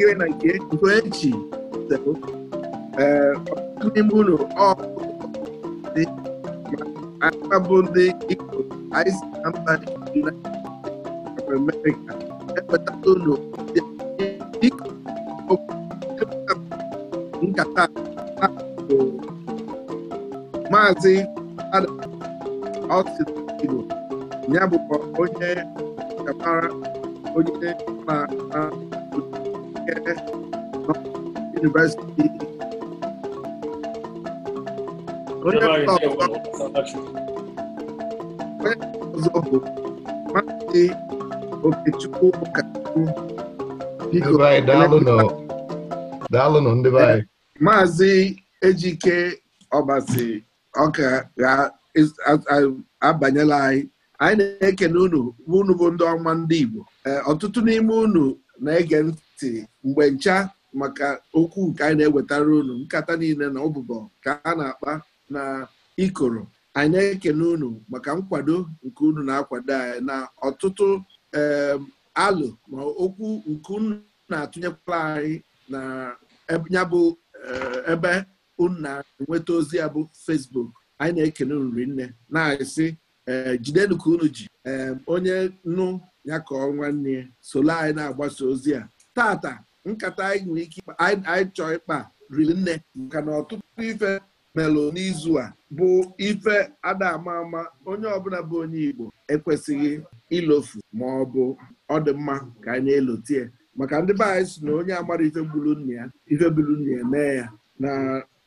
iwe na nke eji n'ime ụlọ bụ ndị Igbo Amerịka ewetala ụlọ nkata maazị Austin ya bụkwa onye kapara onye na University. Onye ọzọ bụ Maazị Okechukwu Ụkachukwu. Daalụnụ ndị be anyị. Maazị Ejike Ọbasi ọka ga-abanyela anyị anyị na eke n'ụnụ unu bụ ndị ọma ndị Igbo eh, ọtụtụ n'ime unu na-ege ntị mgbe ncha maka okwu nke anyị na-ewetara unu nkata niile na ọbụbọ ka a na-akpa na ikoro anyị na-ekene unu maka nkwado nke unu na-akwado anyị na ọtụtụ alụ ma okwu nke unu na-atụnyekwala anyị na ya bụ eh, ebe unu na-enweta ozi ya bụ fesbuk anyị na-ekene unu nne na asị eh, jidenu ka unu ji onye nnu ya ka ọ nwanne ya solo anyị na-agbasa ozi a tata nkata anyị nwere ike anyị chọọ ịkpa riri nne maka na ọtụtụ ife melụ n'izu a bụ ife ada ama ama onye ọbụla bụ onye Igbo ekwesịghị ilofu ma ọ bụ ọ dị mma ka anyị elotie maka ndị be anyị si na onye amara ife gburu ya ife gburu ya mee ya na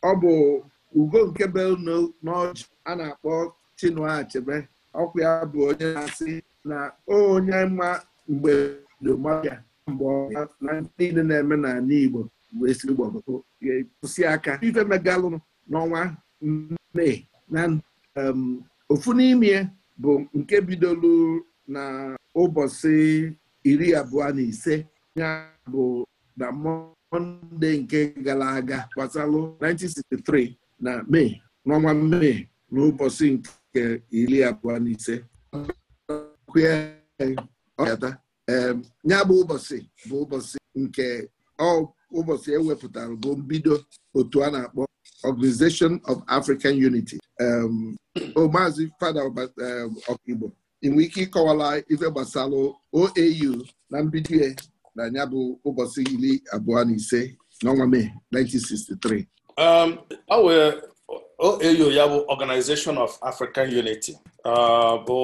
ọ bụ ugo nke be n'ọjị a na-akpọ Chinua ọkwa ya bụ onye na-asị na onye mma mgbe mmadụ ya mgbe na niile na-eme n'ala Igbo bụ ezigbo kwụsị aka ife megalụ n'ọnwa mee na ofu n'ime bụ nke bidolu na ụbọchị iri abụọ na ise ya bụ na mọnde nke gara aga gbasalụ 1963 na mee n'ọnwa mee ụbọchị nke iri abụọ na ise Nya bụ ụbọchị bụ ụbọchị nke ụbọchị ewepụtara bụ mbido otu a na-akpọ Organization of African Unity maazị fada ọkaigbo inwe ike ịkọwala ife gbasara OAU na mbido ya na ya bụ ụbọchị iri abụọ na ise n'ọnwa Mee 1963 ọ wee OAU ya bụ Organization of African Unity bụ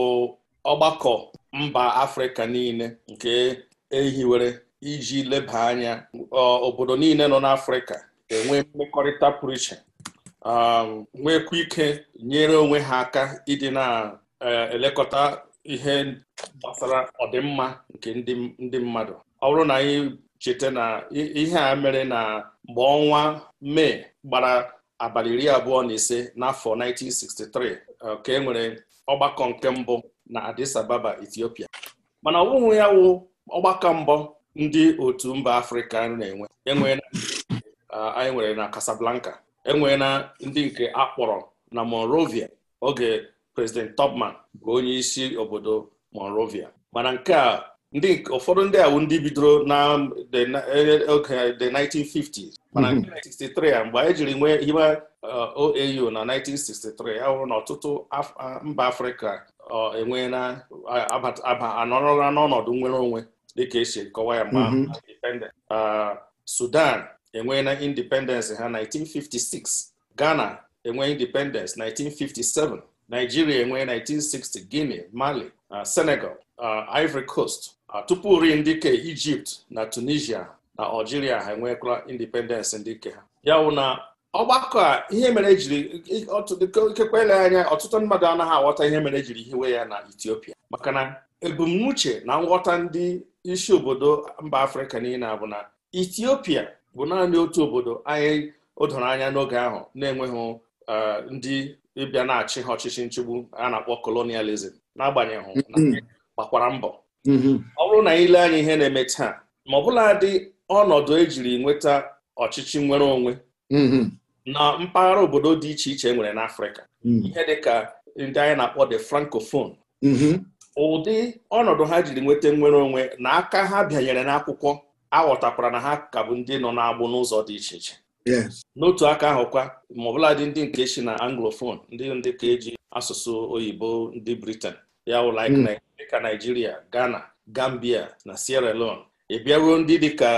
ọgbakọ mba afrịka niile nke ehiwere iji leba anya obodo niile nọ n'afrịka enwe mmekọrịta pụrụ iche um, nwekwa ike nyere onwe ha aka ịdị na-elekọta e, ihe gbasara ọdịmma nke ndị mmadụ ọ bụrụ na anyị cheta na ihe a mere na mgbe ọnwa mee gbara abalị iri abụọ na ise n'afọ 1963 uh, ka e nwere ọgbakọ nke mbụ na Addis Ababa Ethiopia mana ọ ya wụ ọgbakọ mbọ ndị otu mba Afrịka na-enwe enwe uh, anyị nwere na Casablanca enwe na ndị nke akpọrọ na Monrovia oge President Tubman bụ onye isi obodo Monrovia mana nke a ndị ụfọdụ ndị awụ ndị bidoro na oge the 1950s mana 1963 mhm. a mgbe anyị jiri nwe hiwe uh, OAU na 1963 ahụrụ na ọtụtụ mba Afrịka E na anọrọla n'ọnọdụ nwere onwe dịka esi kọwa ya mgbe mhm. Sudan e na independence ha 1956 Ghana enwe independence 1957 Nigeria enwee 1960 Guinea Mali Senegal Ivory Coast tupu ri ndịka Egypt na Tunisia na Algeria ha enwekwala independence ndịke ha ya na ọgbakọ a ihe mere ejiri ikekwe ele anya ọtụtụ mmadụ anaghị aghọta ihe mere ejiri hiwe ya na Ethiopia maka na ebumnuche na nghọta ndị isi obodo mba Afrịka niile bụ na Ethiopia bụ naanị otu obodo anyị odoro anya n'oge ahụ na-enweghị e, ndị ịbịa na-achị ha ọchịchị nchigbu a na-akpọ kolonializm n'agbanyeghị mm-hmm. gbakwara mbọ mm-hmm. ọ bụrụ na anyị anya ihe na-eme taa ma ọ bụla dị ọnọdụ ejiri nweta ọchịchị nwere onwe mm-hmm. na mpaghara obodo dị iche iche e nwere n'Afrịka hmm. ihe dịka ndị anyị na-akpọ de francophone mm-hmm. ụdị ọnọdụ ha jiri nweta nnwere onwe na aka ha bịanyere n'akwụkwọ aghọtakwara na ha ka bụ ndị nọ n'agbụ n'ụzọ dị iche iche n'otu aka ahụ kwa ma ọbụladị ndị nke si na anglophone ndị ndị ka eji asụsụ oyibo ndị britan ya wụlike hmm. dịka Nigeria Ghana Gambia na Sierra Leone ị e bịaruo ndị dịka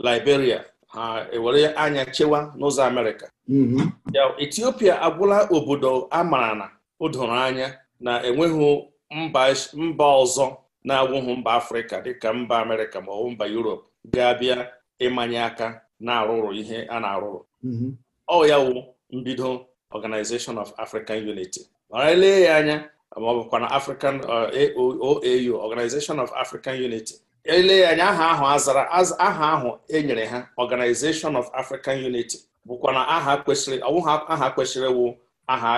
Liberia ha ewere anya chewa n'ụzọ Amerịka Mm-hmm. Ethiopia agwụla obodo a mara na o doro anya na enweghị mba ọzọ na-agwụghị mba Afrịka dịka mba Amerịka ma ọ mba Europe ga-abịa ịmanye aka na-arụrụ ihe a na-arụrụ mm-hmm. ọ ya wụ mbido Organization of African Unity ma ya anya ma ọ bụkwa na African uh, OAU Organization of African Unity anya aha ahụ azara aha ahụ enyere ha Organization of African Unity bụkwa na aha kwesịrị ọwụha aha kwesịrị wụ aha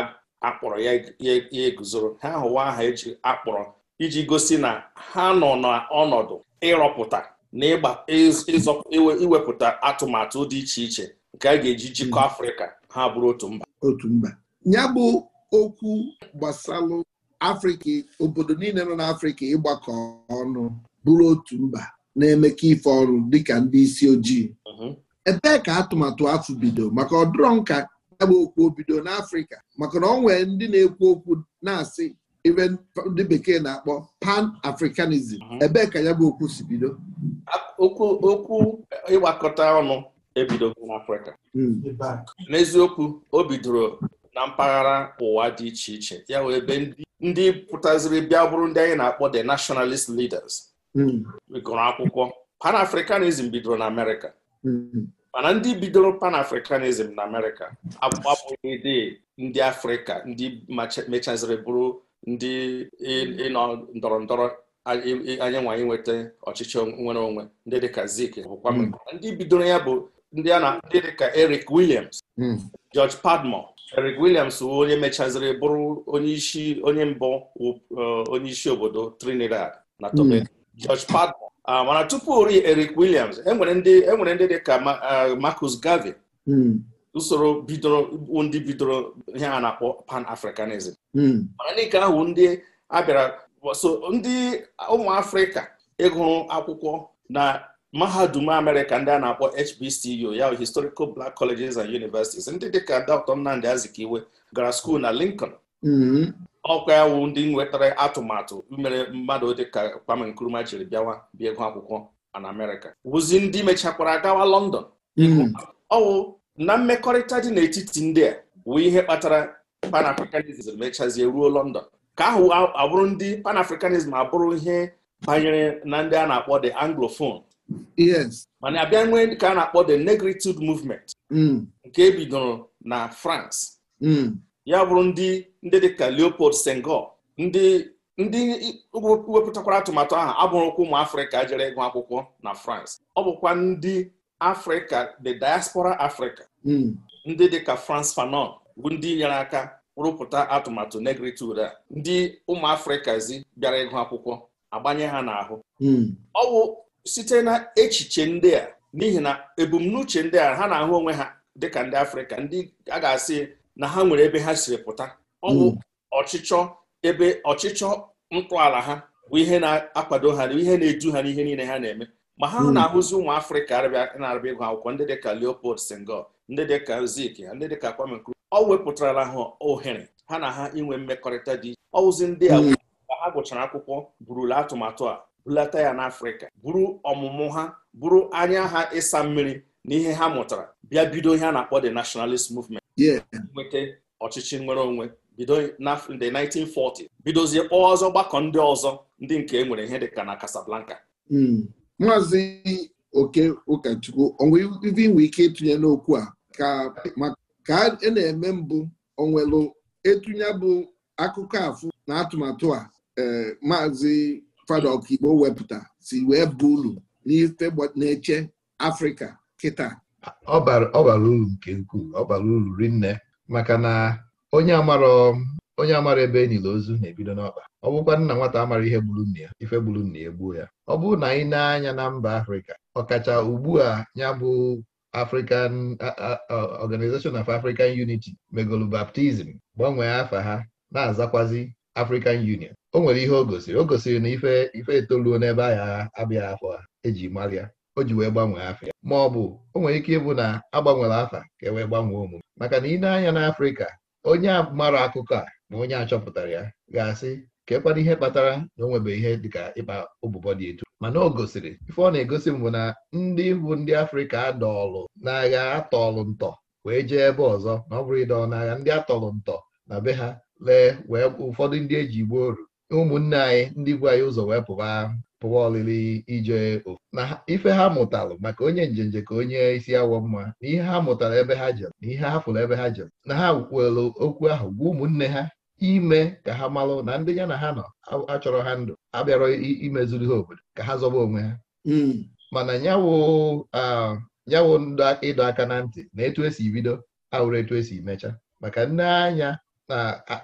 akpọrọ ya eguzoro ha hụwa aha eji akpọrọ iji gosi na ha nọ n'ọnọdụ ịrọpụta na iwepụta atụmatụ dị iche iche nke a ga-eji jikọ hmm. afrịka ha bụrụ otu mba otu mba ya bụ okwu gbasalụ afrịka obodo niile nọ n'afrịka ịgbakọ ọnụ bụrụ otu mba na-emekọ ife ọrụ dịka ndị isi ojii mhm. ebee ka atụmatụ afọ bido maka ọdụrọ nka agba okwu bido n'afrịka maka na ọ nwee ndị na-ekwu okwu na-asị ibe ndị bekee na-akpọ pan africanism mhm. ebee ka ya bụ okwu si bido okwu ịgbakọta ọnụ ebidogo n'afrịka hmm. n'eziokwu o bidoro na mpaghara ụwa dị iche iche ya wee ebe ndị pụtaziri bịa bụrụ ndị anyị na-akpọ the nationalist leaders gụrụ hmm. akwụkwọ pan africanism bidoro na amerịka Mm-hmm. mana ndị bidoro pan Africanism na amerịka abụghị dị ndị afrịka ndị mechaziri bụrụ ndị ịnọ ndọrọ ndọrọ anyị nwa nweta ọchịchị nwere onwe ndị dịka zik bụkwa mm-hmm. ndị bidoro ya bụ ndị a na ndị dịka Eric Williams mm-hmm. George Padmore Eric Williams wụ onye mechaziri bụrụ onye isi onye mbụ uh, onye isi obodo Trinidad na Tobago George Padmore Ah, mana tupu Eric Williams enwere ndị enwere dị ka eh, Marcus Garvey hmm. usoro bidoro ndị bidoro ihe a na-akpọ pan-africanism hmm. mana ka ahụ ndị abịara so ndị ụmụ afrịka ịgụrụ akwụkwọ na mahadum amerịka ndị a na-akpọ HBCU ya historical black colleges and universities ndị dịka Dr. Nnamdi Azikiwe gara skuul na Lincoln hmm. ọkwa ewu ndị nwetara atụmatụ mere mmadụ dịka Kwame Nkrumah jiri bịawa bịa ego akwụkwọ na Amerịka wụzi ndị mechakwara gawa London hmm. ọwụ na mmekọrịta dị n'etiti ndị a wụ ihe kpatara Pan-Africanism mechazie ruo London ka ahụ abụrụ ndị Pan-Africanism abụrụ ihe banyere na ndị a na-akpọ the Anglophone mana abịa nwee ka a na-akpọ the Negritude Movement hmm. nke ebidoro na France hmm. ya bụrụ ndị ndị dịka Leopold Senghor ndị ndị wepụtakwara atụmatụ ahụ abụrụkwa ụmụ afrịka jere ịgụ akwụkwọ na France ọ bụkwa ndị afrịka the diaspora africa hmm. ndị dịka France Fanon bụ ndị nyere aka rụpụta atụmatụ negritude a ndị ụmụ zi bịara ịgụ akwụkwọ agbanye ha n'ahụ hmm. ọ bụ site na echiche ndị a n'ihi na ebumnuche ndị a ha na-ahụ onwe ha dịka ndị afrịka ndị a ga-asị na ha nwere ebe ha siri pụta ọ bụ mm. ọchịchọ ebe ọchịchọ ntọala ha bụ ihe na-akwado ha ihe na-edu ha n'ihe niile ha na-eme ma ha mm. na-ahụzi ụmụ afrịka na-arịba ịgụ akwụkwọ ndị dịka leopold senghor ndị dịka zik ha ndị dịka kwame nkrumah ọ wepụtarala ha ohere ha na ha inwe mmekọrịta dị iche ndị a mm. ka ha gụchara akwụkwọ burula atụmatụ a bulata ya n'afrịka buru ọmụmụ ha buru anya ha ịsa mmiri na ihe ha mụtara bịa bido ihe a na-akpọ the nationalist movement nweta ọchịchị nwere onwe bido na nde 1940 bidozie kpọọ ọzọ gbakọ ndị ọzọ ndị nke e nwere ihe ka na Casablanca hmm. maazị oke ụkọchukwu onwe ibe inwe ike ịtụnye n'okwu a ka a e na-eme mbụ onwelu etunye bụ akụkọ afụ na atụmatụ a eh, maazị fada ọkaigbo wepụta si wee bụ uru n'ife na-eche Afrịka kịta ọ bara uru nke ukwuu ọ bara uru rinne maka na onye amara onye amara ebe enyila ozu na-ebido n'ọkpa ọ bụkwa nna nwata amara ihe gburu nna ya ife gburu nna ya egbuo ya ọ bụrụ na anyị na-anya na mba afrịka ọkacha ugbu a ya bụ African Organization of African Unity megolu baptizim gbanwee afa ha na-azakwazi African Union o nwere ihe o gosiri o gosiri na ife ife etoluo n'ebe ahịa abịaghị afọ ha eji mara o ji wee gbanwee afa ya ma ọ bụ o nwere ike ịbụ na agbanwere afa ka e wee gbanwee omume maka na ị na-anya n'Afrịka onye mara akụkọ a na onye a chọpụtara ya ga-asị kekwana ihe kpatara na o nwebe ihe dịka ịkpa ụbụbọ dị etu mana o gosiri ife ọ na-egosi mbụ na ndị bụ ndị Afrịka adọọlụ n'agha atọọlụ ntọ wee jee ebe ọzọ na ọ bụrụ ịdọọ n'agha ndị atọọlụ ntọ na be ha lee wee ụfọdụ ndị eji gbuo oru ụmụnne anyị ndị bu anyị ụzọ wee pụba pụwa olili ije na ife ha mụtalụ maka onye njenje ka onye isi awọ mma na ihe ha mụtara ebe ha jere na ihe ha fụrụ ebe ha jere na ha kwelụ okwu ahụ gwa ụmụnne ha ime ka ha malụ na ndị ya na ha nọ achọrọ ha ndụ abịarọ imezuru ha obodo ka ha zọba onwe ha hmm. mana nyawo ịdọ aka na ntị na etu esi bido ahụrụ etu esi mecha maka nne anya na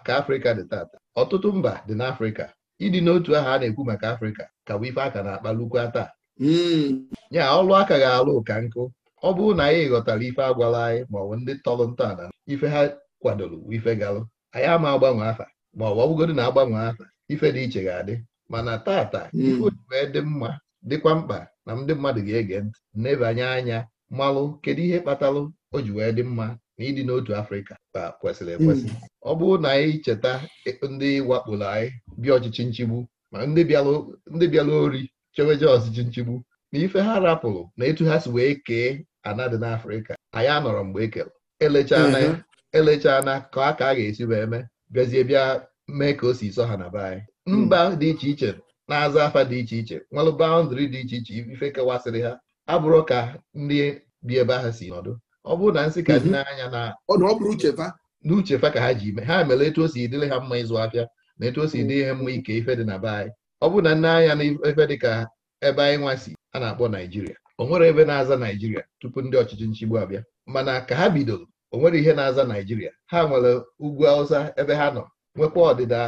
ka Afrịka dị tata ọtụtụ mba dị n'Afrịka ịdị n'otu aha a na-ekwu maka afrịka ka bụ ife aka na-akpa lukwa taa hmm. ya ọlụ aka ga-alụ ụka nkụ ọ bụrụ na anyị ghọtara ife agwala anyị ma ọ bụ ndị tọrọ ntọala ife ha kwadoro ife galụ anyị ama agbanwe afa ma ọ bụgodị na agbanwe afa ife dị iche ga-adị mana tata hmm. ife wee dị mma dịkwa mkpa na ndị mmadụ ga-ege ntị nebanye anya malụ kedu ihe kpatalụ o ji wee dị mma na ịdị n'otu afrịka ka kwesịrị hmm. ekwesị ọ bụrụ na anyị cheta ndị wakporo anyị bịa ọchịchị nchigbu ma ndị bịara ori cheweje ọchịchị nchigbu na ife ha rapụrụ na etu ha si wee kee ana dị n'afrịka anyị anọrọ mgbe ekere elechana hmm. ka a ka a ga-esi wee mee bịazie bịa mee ka o si sọ ha na be anyị hmm. mba dị iche iche na-aza afa dị iche iche nwere baụndịrị dị iche iche ife kewasịrị ha abụrụ ka ndị bi ebe ahụ si nọdụ ọ bụrụ na nsị ka dị mhm. n'anya na ọ ka ha ji ime ha mere etu o si dịrị ha mma ịzụ afịa na etu o si mhm. dị ihe mma ike ife dị na be anyị ọ bụrụ na nne anya na ife dị ka ebe anyị nwa si a na-akpọ naijiria o nwere ebe na-aza naijiria tupu ndị ọchịchị nchigbu abịa mana ka ha bidoro o nwere ihe na-aza naijiria ha nwere ugwu awụsa ebe ha nọ nwekwa ọdịda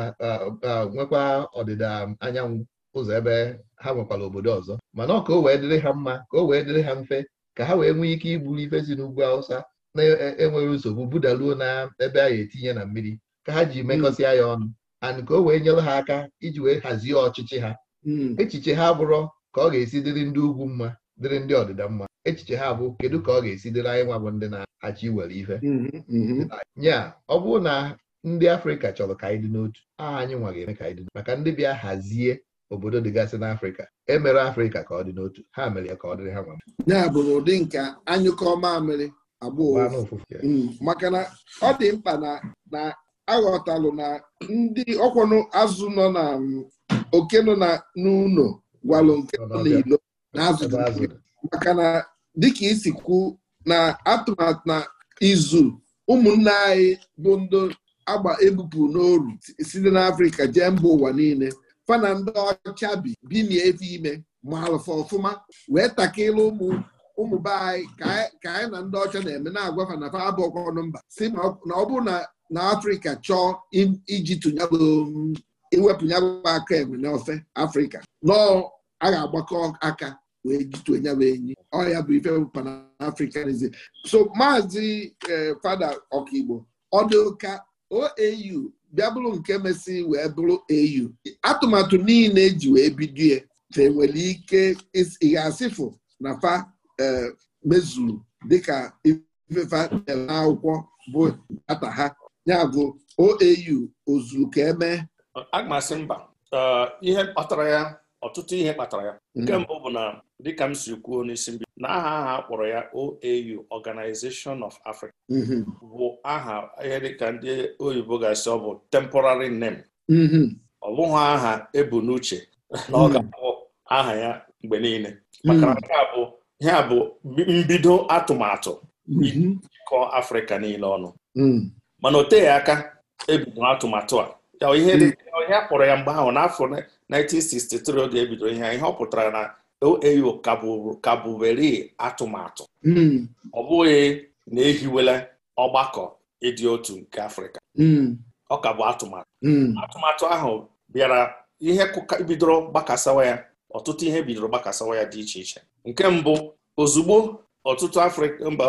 nwekwa ọdịda anyanwụ ụzọ ebe ha nwekwara obodo ọzọ mana ọ ka o wee dịrị ha mma ka o wee dịrị ha mfe ka ha wee nwee ike iburu ife si n'ugwu Hausa na-enweghị e, e nsogbu budaluo na ebe a ga-etinye na mmiri ka ha ji mekọsịa ya ọnụ and ka o wee nyere ha aka iji wee hazie ọchịchị ha hmm. echiche ha bụrụ ka ọ ga-esi dịrị ndị ugwu mma dịrị ndị ọdịda mma echiche ha bụ kedu ka ọ ga-esi dịrị anyị nwa bụ ndị na-achị iwere ife hmm, hmm, nya ọ bụrụ na ndị Afrịka chọrọ ka anyị dị n'otu aha anyị nwa ga-eme ka anyị dị maka ndị bịa hazie obodo dịgasị n'afrịka emere afrịka ka ọ dị n'otu ha mere ya ka ọ dịrị ha nwa ya bụrụ ụdị nke anyụkọ mamịrị abụọ mm, maka na ọ dị mkpa na na aghọtalụ na ndị ọkwọnụ azụ nọ na mm, oke nọ na n'ụlọ gwalụ nke nọ n'ilo na azụ maka na dịka isi kwu na atụmatụ na izu ụmụnne anyị bụ ndị agba ebupụ n'oru site n'afrịka jee mba ụwa niile fana ndị ọcha bi binie efe ime ma alụfa ọfụma wee takịrị ụmụ ụmụ be anyị ka anyị na ndị ọcha na-eme na-agwafa na fa abụọkwanụ mba si na ọ bụrụ na afrịka chọọ iji tụnyagbo iwepụnyagbo aka enwe Ofe afrịka nọọ a ga-agbakọ aka wee jitue nyabụ enyi ọya bụ ife panafricanism so maazị eh, fada ọkaigbo ọdụka OAU bịa bụrụ nke mesị wee bụrụ au atụmatụ niile eji wee bido ya e nwere ike ịga asịfụ na fa e, mezuru dịka ifefa dere akwụkwọ bụ data ha ya bụ oau ozuru ka eme agmasị mba e, ihe kpatara ya ọtụtụ ihe kpatara ya nke hmm. mbụ bụ na dịka m si kwuo n'isi mbido na aha aha a kpọrọ ya OAU Organization of Africa mm-hmm. bụ aha ihe dịka ndị oyibo ga-asị ọ bụ temporary name mm-hmm. ọ bụghị aha ebu n'uche na ọ mm-hmm. ga-abụ aha ya mgbe niile maka bụ ihe a bụ mbido atụmatụ ịkọ Afrịka niile ọnụ mm. mana o teghị aka ebido atụmatụ a ihe mm. kpọrọ ya mgbe ahụ n'afọ 1963 oge ebido ihe ihe ọ na eyo kabụwere atụmatụ hmm. ọ bụghị na ehiwela ọgbakọ ịdị otu nke afrịka hmm. ọ ka bụ atụmatụ hmm. atụmatụ ahụ bịara ihe bidoro gbakasawa ya ọtụtụ ihe bidoro gbakasawa ya dị iche iche nke mbụ ozugbo ọtụtụ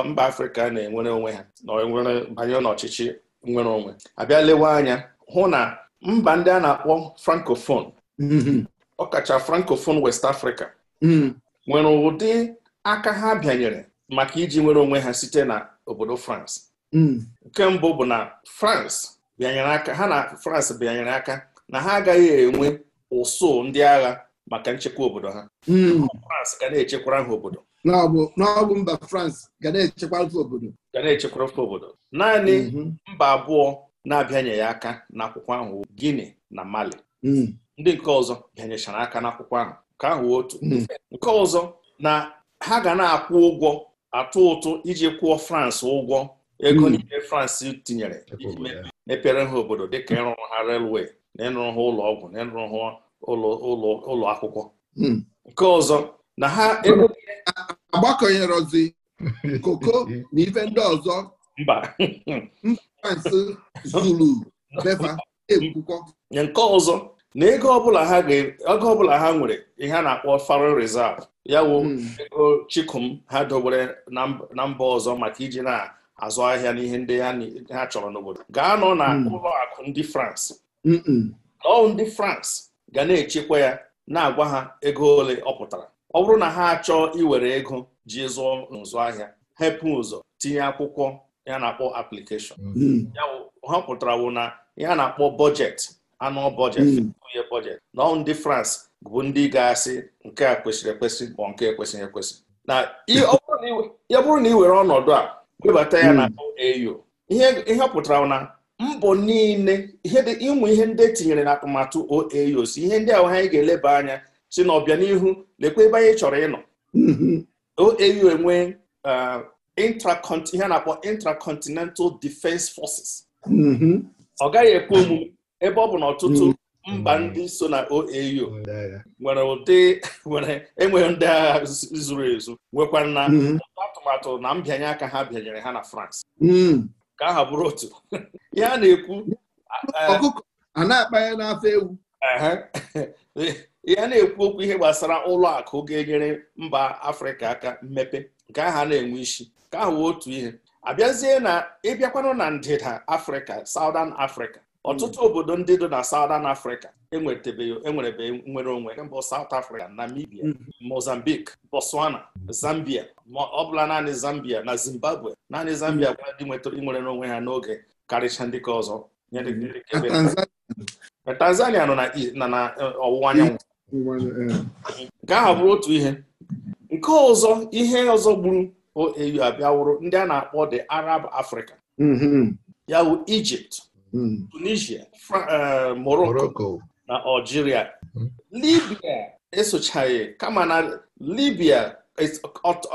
mba afrịka na-enwere onwe ha na banye n'ọchịchị nwere onwe abịa lewe anya hụ na mba ndị a na-akpọ ọ ọkacha frankofon west africa Hmm. nwere ụdị aka ha bịanyere maka iji nwere onwe ha site na obodo France hmm. nke mbụ bụ na France bịanyere aka na France bịanyere aka na ha agaghị enwe ụsụ ndị agha maka nchekwa obodo ha hmm. France ga na-echekwara ha obodo n'ọbụ mba France ga na-echekwara obodo ga na-echekwara ha obodo naanị mba abụọ na-abịanye aka n'akwụkwọ ahụ Guinea na Mali ndị nke ọzọ bịanyechara aka n'akwụkwọ ahụ ka ahụ otu hmm. nke ọzọ na ha ga na-akwụ ụgwọ atụ ụtụ iji kwụọ France ụgwọ ego hmm. n'ime France tinyere iji mepere ha obodo dịka ịrụrụ ha relwe na ịrụrụ ha ụlọ ọgwụ na ịrụrụ ha ụlọ akwụkwọ hmm. nke ọzọ na ha agbakọnyerozi koko na ife ndị ọzọ mba France Zulu befa ekwukọ nke ọzọ na ego ọbụla ha nwere ihe a na-akpọ foreign reserve ya wụ hmm. ego chikum ha dobere na mba ọzọ maka iji na-azụ ahịa n'ihe ndị ha chọrọ n'obodo gaa nọ na hmm. ụlọ akụ ndị France ọụ ndị France ga na-echekwa ya na-agwa ha ego ole ọ pụtara ọ bụrụ na ha achọọ iwere ego ji zụọ nzụ ahịa hepụ ụzọ tinye akwụkwọ ya na-akpọ application hmm. ya ha pụtara wụ na ihe na-akpọ bọjetị anọ budget two-year na ndị France bụ ndị ga-asị nke a kwesịrị ekwesị bụ nke ekwesịghị ekwesị na ya bụrụ na ị were ọnọdụ a webata ya hmm. na au ihe pụtara na mbọ niile ụmụ ihe ndị etinyere na atụmatụ OAU si ihe ndị ahụ anyị ga-eleba anya si na ọbịa n'ihu lekwa ebe anyị chọrọ ịnọ hmm. OAU enwe uh, ihe a na-akpọ intracontinental defense forces hmm. ọ gaghị ekwe omume ebe ọ bụ na ọtụtụ hmm. mba ndị so na OAU nwere ụdị nwere enweghị ndị agha zuru ezu nwekwa na hmm. atụmatụ na mbịanye aka ha bịanyere ha na France hmm. ka aha bụrụ otu ya a na-ekwu a na n'afọ na-ekwu okwu ihe gbasara ụlọ akụ ga-enyere mba Afrịka aka mmepe nke aha na-enwe isi ka ahụ otu ihe abịazie na ịbịakwanụ na ndịda Afrịka Southern afrịka. ọtụtụ hmm. obodo ndị dị na Southern Africa enwerebeghị e nwere onwe mbụ South Africa Namibia hmm. Mozambique Botswana Zambia ma ọ bụla naanị Zambia na Zimbabwe naanị Zambia hmm. gwara ndị nwetara inwere onwe ha n'oge karịcha ndị ka ọzọ Tanzania nọ na e, ọwụwa anyanwụ nke ahụ bụrụ otu ihe nke ọzọ ihe ọzọ gburu au e, abịawụrụ ndị a na-akpọ the Arab Africa ya bụ Egypt Hmm. tunisia uh, morocco na algeria hmm. libya esochaghị kama na libia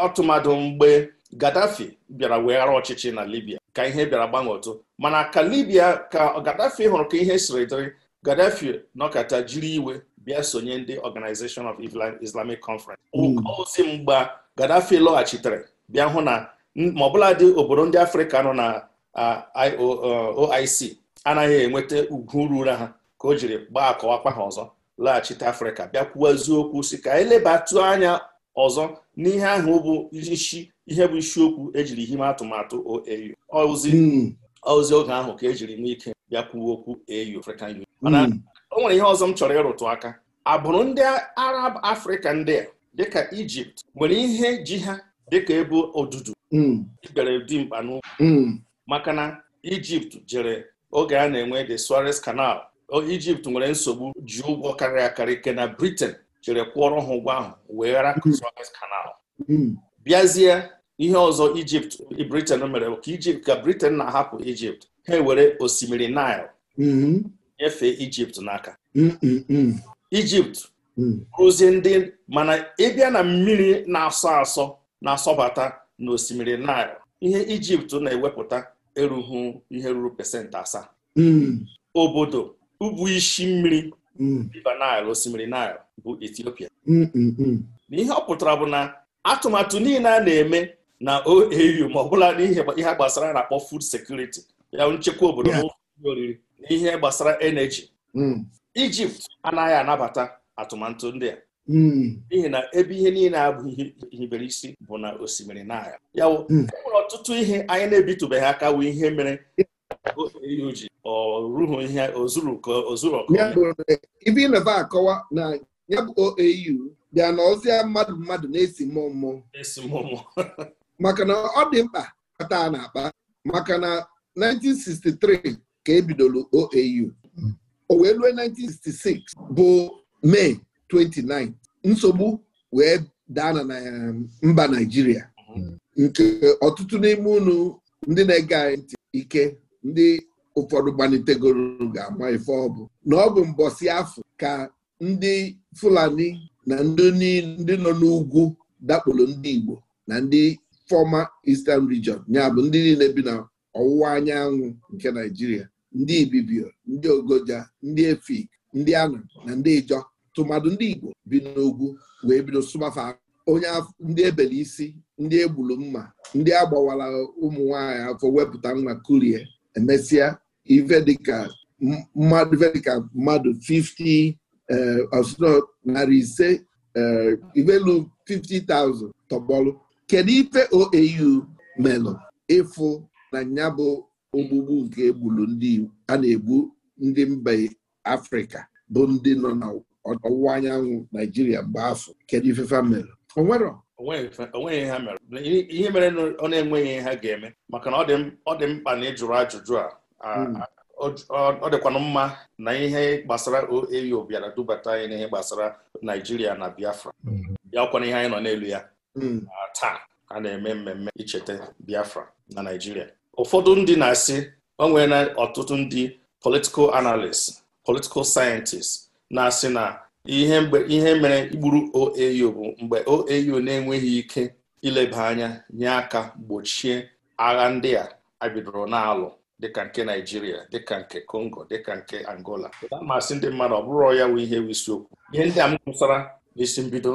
ọtụmadụ mgbe gaddafi bịara weghara ọchịchị na libia ka ihe bịara gbanwe otu mana ka Libia ka gaddafi hụrụ ka ihe siri dịrị gaddafi nọkata jiri iwe bịa sonye ndị Organization of Islamic Conference hmm. ozi mgba gaddafi lọghachitere bịa hụ na ma dị obodo ndị afrịka nọ na uh, oic uh, anaghị enweta ugwu ruru ha ka o jiri gbaa akọwakpa ha ọzọ laghachite afrịka bịakwuo eziokwu si ka anyị e lebatụ anya ọzọ n'ihe ahụ bụ isi ihe bụ isiokwu ejiri hime atụmatụ OAU ozi hmm. oge ahụ ka ejiri nwee ike bịakwuo okwu AU Union hmm. mana o nwere ihe ọzọ m chọrọ ịrụtụ aka agbụrụ ndị Arab Afrịka ndị a dịka Ijipt nwere ihe ji ha dịka ebe odudu ikpere hmm. dimkpa n'ụkwụ maka na Ijipt jere oge a na-enwe the Suez Canal Egypt nwere nsogbu ji ụgwọ karịrị akarị ike na Britain chere kwụọrọ ha ụgwọ ahụ wee ghara hmm. Suez Canal hmm. bịazie ihe ọzọ Egypt Britain mere ka Egypt ka Britain na-ahapụ Egypt ha ewere osimiri Nile hmm. nyefee Egypt n'aka Egypt rụzie ndị mana ịbịa na mmiri na-asọ asọ na-asọbata na osimiri Nile ihe Egypt na-ewepụta erughị ihe ruru pasentị asaa hmm. obodo ubu isi mmiri hmm. river Nile osimiri Nile bụ Ethiopia hmm, na ihe ọ pụtara bụ na atụmatụ niile a na-eme na OAU ma ọ bụla n'ihe ihe gbasara na-akpọ food security ya nchekwa obodo na oriri na ihe gbasara energy Egypt anaghị anabata atụmatụ ndị a Hmm. n'ihi na ebe ihe niile abụghị ihibere isi bụ na osimiri na ya hmm. enwere ọtụtụ ihe anyị na-ebitubeghị aka wee ihe mere ji oruhu ihe ozuru ka ọkụ ibe akọwa na ya bụ OAU bịa na ọzịa mmadụ mmadụ na-esi mmụọ mmụọ maka na ọ dị mkpa kpata na-akpa maka na 1963 ka ebidoro OAU hmm. o wee 1966 bụ Mee 29 nsogbu wee daa na um, mba Naijiria, mm-hmm. nke ọtụtụ n'ime unu ndị na-ege anyị ntị ike ndị ụfọdụ gbanitegoro ga-ama ife ọ bụ na ọ bụ mbọsị afọ ka ndị Fulani na ndị nọ n'ugwu dakporo ndị Igbo na ndị fọma Eastern Region ya bụ ndị niile bi na ọwụwa anyanwụ nke Naijiria, ndị Ibibio ndị Ogoja ndị Efik ndị Anam na ndị Ijọ tụmadụ ndị Igbo bi n'ugwu wee bido sụbafa onye ndị ebele isi ndị egburu mma ndị agbawara ụmụ nwanyị afọ wepụta nwa kurie emesịa ife dịka mmadụ 50 eh, narị ise eh, ivelu 50,000 tọgbọlụ kedu ife OAU melụ ịfụ na ya bụ ogbugbu nke egburu ndị a na-egbu ndị mba Afrịka bụ ndị nọ na ọwụwa anyanwụ naijiria mgbe afọ kedu ifefa mere onwero onweghị ha mere ihe mere ọ na-enweghị ihe ha ga-eme maka na ọ dị mkpa na ịjụrụ ajụjụ a hmm. ọ dịkwanụ mma na ihe gbasara OAU bịara e dubata anyị n'ihe gbasara naijiria na biafra bịakwana hmm. ihe anyị nọ n'elu ya hmm. taa a na-eme mmemme icheta biafra na naijiria ụfọdụ ndị na-asị o na ọtụtụ ndị political analist political sayentist na-asị na ihe mere igburu OAU bụ mgbe OAU na-enweghị ike ileba anya nye aka gbochie agha ndị a abidoro na-alụ dịka nke Naijiria dịka nke Congo dịka nke Angola amasị ndị mmadụ ọ bụrụ ya wụ ihe isiokwu ihe ndị a m kwụsara n'isi mbido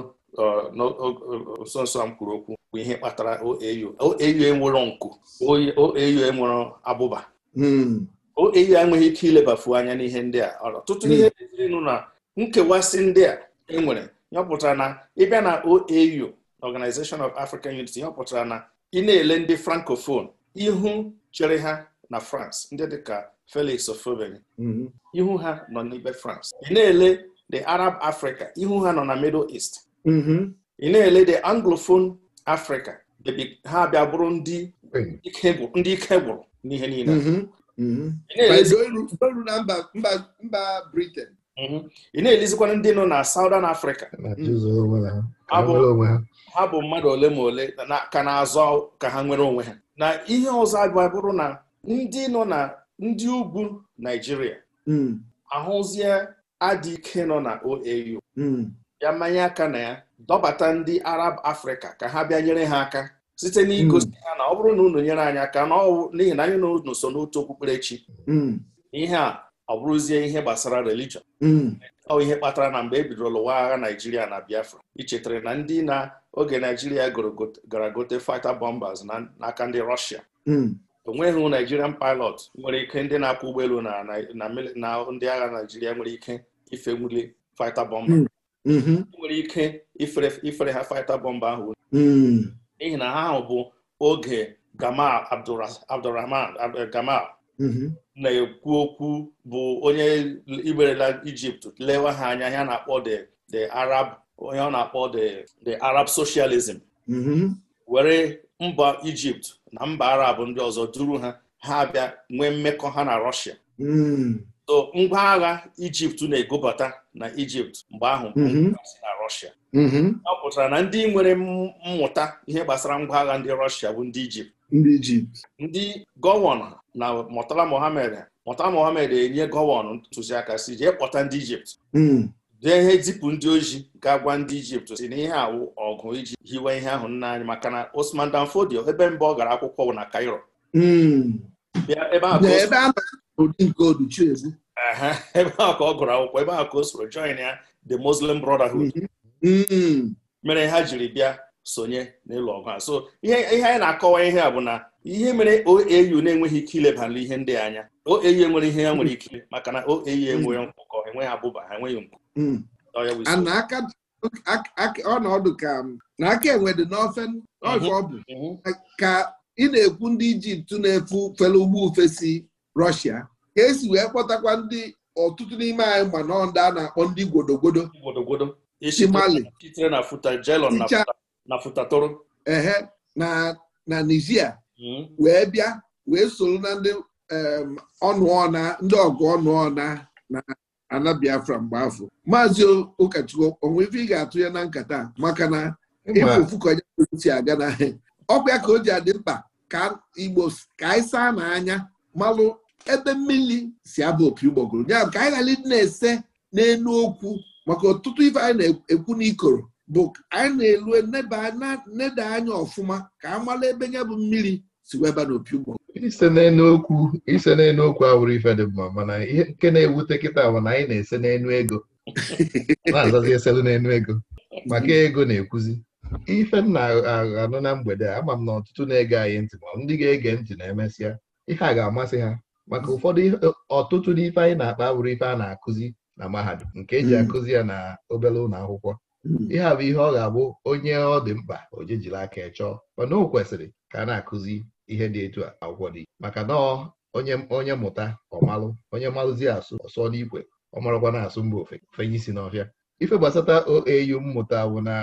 nso nso a m okwu bụ ihe kpatara OAU OAU enwero nku OAU abụba hmm. OAU ya enweghị ike ilebafu anya n'ihe ndị a ọtụtụ ihe ezirinụ hmm. na nkewasị ndị a enwere nyọpụtara na ịbịa na OAU Organization of African Unity nyọpụtara na ị na-ele ndị francophone ihu chere ha na France ndị dịka Felix of boigny ihu ha nọ n'ibe France ị na-ele the Arab Africa ihu ha nọ na Middle East hmm. ị na-ele the Anglophone Africa ha bịa bụrụ ndị ike gwụrụ n'ihe niile Mm-hmm. mba Britain mm-hmm. ị na-elizikwana ndị nọ na Southern Africa ha bụ mmadụ ole ma ole ka na-azọ ka ha nwere onwe ha na ihe ọzọ abịa bụrụ na ndị nọ na ndị ugwu Naijiria mm. ahụzie adị ike nọ na OAU bịa mm. mmanya aka na ya dọbata ndị Arab afrịka ka ha bịa nyere ha aka site n'igosi ha hmm. na ọ bụrụ na unu nyere anyị aka n'ihi na anyị na unu so n'otu okpukperechi hmm. ihe a ọ bụrụzie ihe gbasara religion hmm. ọ ihe kpatara na mgbe e bidoro lụwa agha Naijiria na Biafra ichetara na ndị na oge Naijiria gara gote fighter bombers n'aka ndị Russia onweghị naijirian pilot nwere ike ndị na-akwọ ụgbọelu na ndị agha Naijiria nwere ike ifewuli fighter bomber nwere ike ifere ha fighter bọmba ahụ n'ihi na ha ahụ bụ oge Gamal Abdurrahman eh, Gamal mm-hmm. na-ekwu okwu bụ onye igberela Ijipt lewe ha anya ya na-akpọ Arab onye ọ na-akpọ the the Arab socialism mm-hmm. were mba Ijipt na mba Arab ndị ọzọ duru ha ha abịa nwee mmekọ ha na Russia mm. so ngwa agha Ijipt na-egobata na Ijipt mgbe ahụ mm-hmm. na Russia Mhm. ọ pụtara na ndị nwere mmụta ihe gbasara ngwa agha ndị Rọshia bụ ndị Ijipt ndị Ijipt ndị gọvanọ na Murtala Mohammed Murtala Mohammed enye gọvanọ ntụziaka si jee kpọta ndị Ijipt dee hmm. ihe zipụ ndị oji ga gwa ndị Ijipt si na ihe awụ ọgụ iji hiwe ihe ahụ nna anyị maka na Osman Fodio ebe mbụ ọ gara akwụkwọ na Cairo hmm. ebe ahụ ka ọ gụrụ akwụkwọ ebe ahụ ka o soro join ya the Muslim Brotherhood mhm. Hmm. mere ha jiri bịa sonye n'ịlụ ọgụ a so ihe anyị na-akọwa ihe a bụ na ihe mere OAU na-enweghị ike ileba ihe ndị anya OAU enwere ihe ya nwere ike maka na OAU enweghị mkpụkọ hmm. enweghị abụba ha enweghị mkpụ hmm. ọnọdụ ka na aka e n'ofe mhm. ọbụ mhm. ka ị na-ekwu ndị Ijipt na-efu fere ugbo ofesi Rọshia ka esi wee kpọtakwa ndị ọtụtụ n'ime anyị ma nọ ndị a na-akpọ ndị gwodogwodo isi Mali sitere na futa jelon na futatoro ehe na nigeria. Hmm. wee bịa wee soro na ndị ọnụọna ndị ọgụ ọnụọna na ana Biafra mgbe afọ maazị ụkọchukwu onwe ife ị ga-atụ ya na nkata maka na ịfụfụ ka si aga na ọkwa ya ka o ji adị mkpa ka Igbo ka anyị saa n'anya malụ ebe mmiri si aba opi ụgbọgụrụ ya ka anyị ghara ịdị na-ese n'elu okwu maka ọtụtụ ife anyị na-ekwu n'ikoro bụ anyị na-elu neda anya ọfụma ka a mara ebe ya bụ mmiri si weba n'opi ụgbọ ise ise n'enu okwu awụrụ ife dị mma mana ihe nke na-ewute kịta bụ na anyị na-ese n'enu ego na-azazi eselu n'enu ego maka ego na-ekwuzi ife m na-anụ na mgbede a ama m na ọtụtụ na-ege anyị ntị ma ndị ga-ege ntị na-emesịa ihe a ga-amasị ha maka ụfọdụ ọtụtụ n'ife anyị na-akpa awụrụ ife a na-akụzi na mahadum nke eji mm. akụzi ya na obere ụlọ akwụkwọ mm. ihe a bụ ihe ọ ga-abụ onye ọ dị mkpa ojejiri aka chọọ mana o kwesịrị ka a na-akụzi ihe dị etu a akwụkwọ dị maka na onye mụta ọmalụ onye malụzi asụ ọsọ n'ikwe ọ marakwa na-asụ mba fenye isi n'ọhịa ife gbasata OAU mmụta bụ na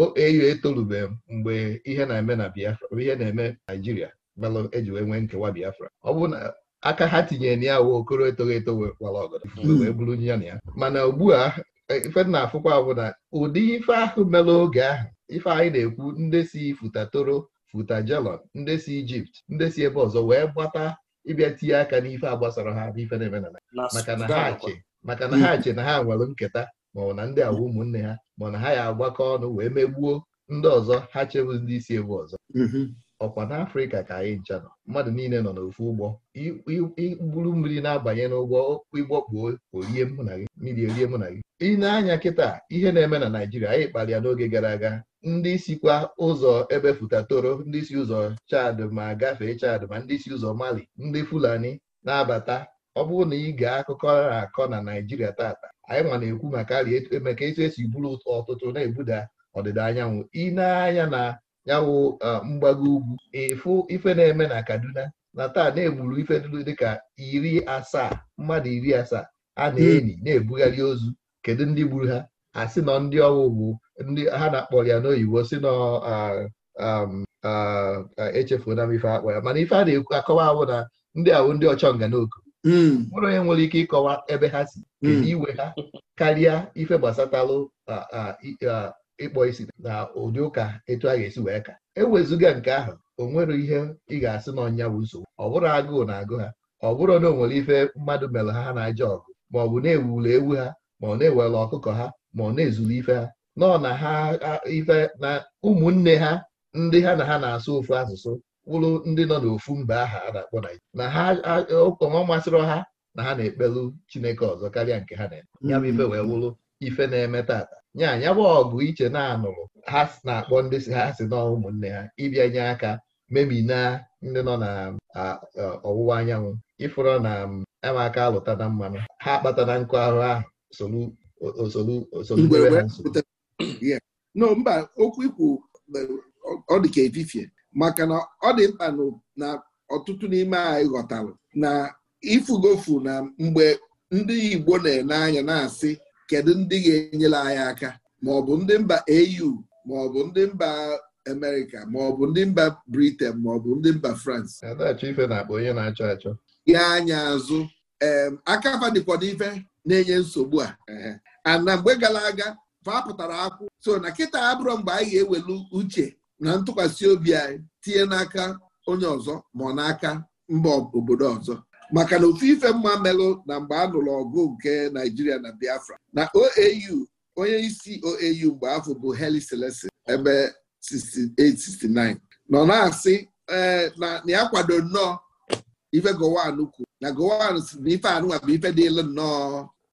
OAU etolubeghị mgbe ihe na-eme na Biafra ihe na-eme Naijiria belụ eji wee nwee nkewa Biafra ọ bụ na aka ha tinyere na ya wee okoro etogho eto wee bụrụ hmm. ya na ya mana ugbu a e, ife na-afụkwa bụ na ụdị ife ahụ mere oge ahụ ife anyị na-ekwu ndị si futa toro futa jelon ndị si ijipt ndị si ebe ọzọ wee gbata ịbịa tinye aka n'ife a gbasara ha bụ ife na-eme na maka na ha chi maka na ha che na ha nwere nketa maọbụ na ndị agwa ụmụnne ha ma na ha ya agbakọ ọnụ wee megbuo ndị ọzọ ha chebụ ndị isi ebe ọzọ mhm. ọkwa n'afrịka ka anyị ncha nọ mmadụ niile nọ n'ofu ụgbọ igburu mmiri na-abanye n'ụgbọ ụgbọ kpuo orie mụ na gị mmiri erie mụ na gị ị anya kịta ihe na-eme na naijiria anyị kpalịa n'oge gara aga ndị sikwa ụzọ ebe futatoro ndị si ụzọ chad ma gafee chad ma ndị si ụzọ mali ndị fulani na-abata ọ bụrụ na ị gaa akụkọ akọ na naijiria tata anyị nwa na-ekwu maka emeka etu esi e buru ọtụtụ na-ebuda ọdịda anyanwụ ị na-anya anya na ya wụ um, mgbago ugwu e, ịfụ ife na-eme na Kaduna na taa na-egburu ife dịka iri asaa mmadụ iri asaa a na-enyi hmm. na-ebugharị ozu kedu ndị gburu ha asị nọ ndị ọwụwụ ndị ha na-akpọ ya n'oyibo si nọ um, na m ife akpọ ya mana ife a na-ekwu akọwa ahụ na ndị ahụ ndị ọchọnga n'oku hmm. mụrụ onye nwere ike ịkọwa ebe ha si kedu hmm. iwe ha karịa ife gbasatalụ ịkpọ isi na ụdị ụka etu a ga-esi wee ka ewezụga nke ahụ o nwere ihe ị ga-asị na ọnya bụ nsogbu ọ bụrụ agụụ na-agụ ha ọ bụrụ na o nwere ife mmadụ mere ha ha na-aja ọgụ ma ọ bụ na ewuli ewu ha ma ọ na-ewere ọkụkọ ha ma ọ na ezuru ife ha nọ na ha ife na ụmụnne ha ndị ha na ha na-asụ ofu asụsụ wụrụ ndị nọ n'ofu mba aha a na-akpọ Naijiria na ha ọma masịrị ha na ha na-ekpelu Chineke ọzọ karịa nke ha na-eme ya bụ ife wee wụrụ ife na-eme tata nya ya bụ ọgụ iche na-anụrụ ha na-akpọ ndị si ha si na ụmụnne ha ịbịa nye aka memina ndị nọ na ọwụwa anyanwụ ịfụrụ na amaka alụta na mmanụ ha kpatara na nkụ ahụ ahụ no mba okwu ikwu ọ dị ka maka na ọ dị mkpa na ọtụtụ n'ime anyị ghọtara na ifugofu na mgbe ndị Igbo na-ene anya na-asị kedu ndị ga-enyere anyị aka ma ọ bụ ndị mba au ma ọ bụ ndị mba Amerịka ma ọ bụ ndị mba Britain ma ọ bụ ndị mba France ya anya azụ ee akafa dịkwa na-enye nsogbu a ana mgbe gara aga fapụtara akwụ so na kịta abụrụ mgbe anyị ga-ewelu uche na ntụkwasị obi anyị tinye n'aka onye ọzọ ma ọ n'aka mba obodo ọzọ maka na ofu ife mma melụ na mgbe a nụrụ ọgụ nke Naijiria na Biafra na OAU onye isi OAU mgbe afọ bụ Heli Selesi ebe 68 nọ na-asị na ya kwado nnọọ ife Gowon kwuru na Gowon si na ife anụnwa bụ ife dịlụ nnọọ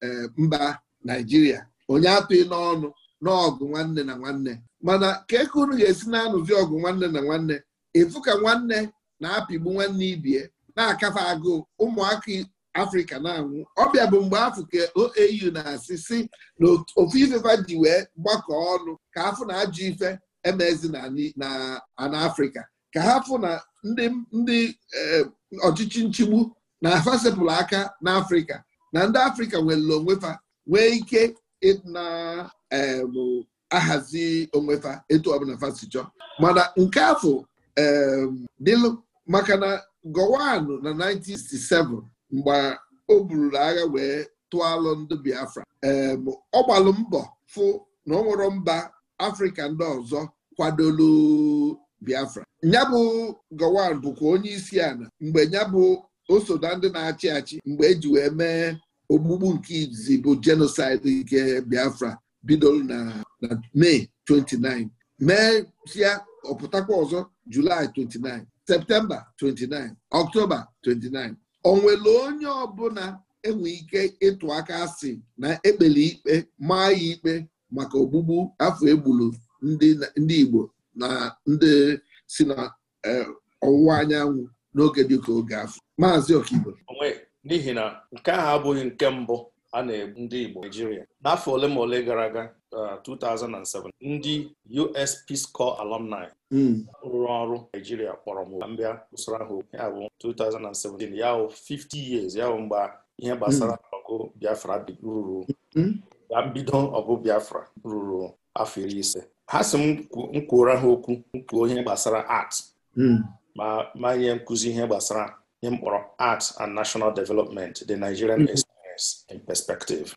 eh, mba Naijiria onye atụghị n'ọnụ n'ọgụ nwanne na nwanne mana ka eke unu ga-esi na-anụzi ọgụ nwanne na nwanne efu ka nwanne na-apịgbu nwanne ibie na-akafe agụ ụmụaka afrịka na-anwụ ọbịa bụ mgbe afọ ka OAU na-asị si na ofu ifefa ji wee ọnụ ka afụ na ajụ ife emezi na afrịka ka ha fụ na ndị eh, ọchịchị nchigbu na afasepụlụ aka n'afrịka na ndị afrịka nwere onwefa nwee ike na-ahazi onwefa etu ọbụla mana nke afọ dịlụ maka gowan na 1967 mgbe o buru agha wee tụọ alụ ndị Biafra ọ gbalụ mbọ fụ na ọ nwụrụ mba Afrịka ndị ọzọ kwadolu Biafra bụ gowan bụkwa onye isi ala mgbe nyabụ o na ndị na-achị achị mgbe eji wee mee ogbugbu nke izizi bụ jenosaịdị nke Biafra bidoro na Mee 29 mee sịa ọpụtakwa ọzọ Julaị 29 septemba 29 ọktoba 29 onwere onye ọbụla enwe ike ịtụ aka asị na ekpere ikpe maa ya ikpe maka ogbugbu afọ egburu ndị Igbo na ndị si na e, ọwụwa anyanwụ n'oge ka oge afọ maazị Okigbo n'ihi na nke ahụ abụghị nke mbụ a na-egbu ndị Igbo Naijiria, n'afọ ole ma ole gara aga 2007 uh, ndị US Peace Corps alumni hmm. rụrụ ọrụ Naijiria kpọrọ m mbịa usoro ahụ ya bụ 2017 ya bụ 50 years ya bụ mgbe ihe gbasara hmm. ọgụ Biafra ruru na hmm. mbido ọgụ Biafra ruru afọ iri ise ha si m kwuora ha okwu nkwu ihe gbasara art ma ma nye nkụzi ihe gbasara ihe mkpọrọ art and national development the Nigerian experience in perspective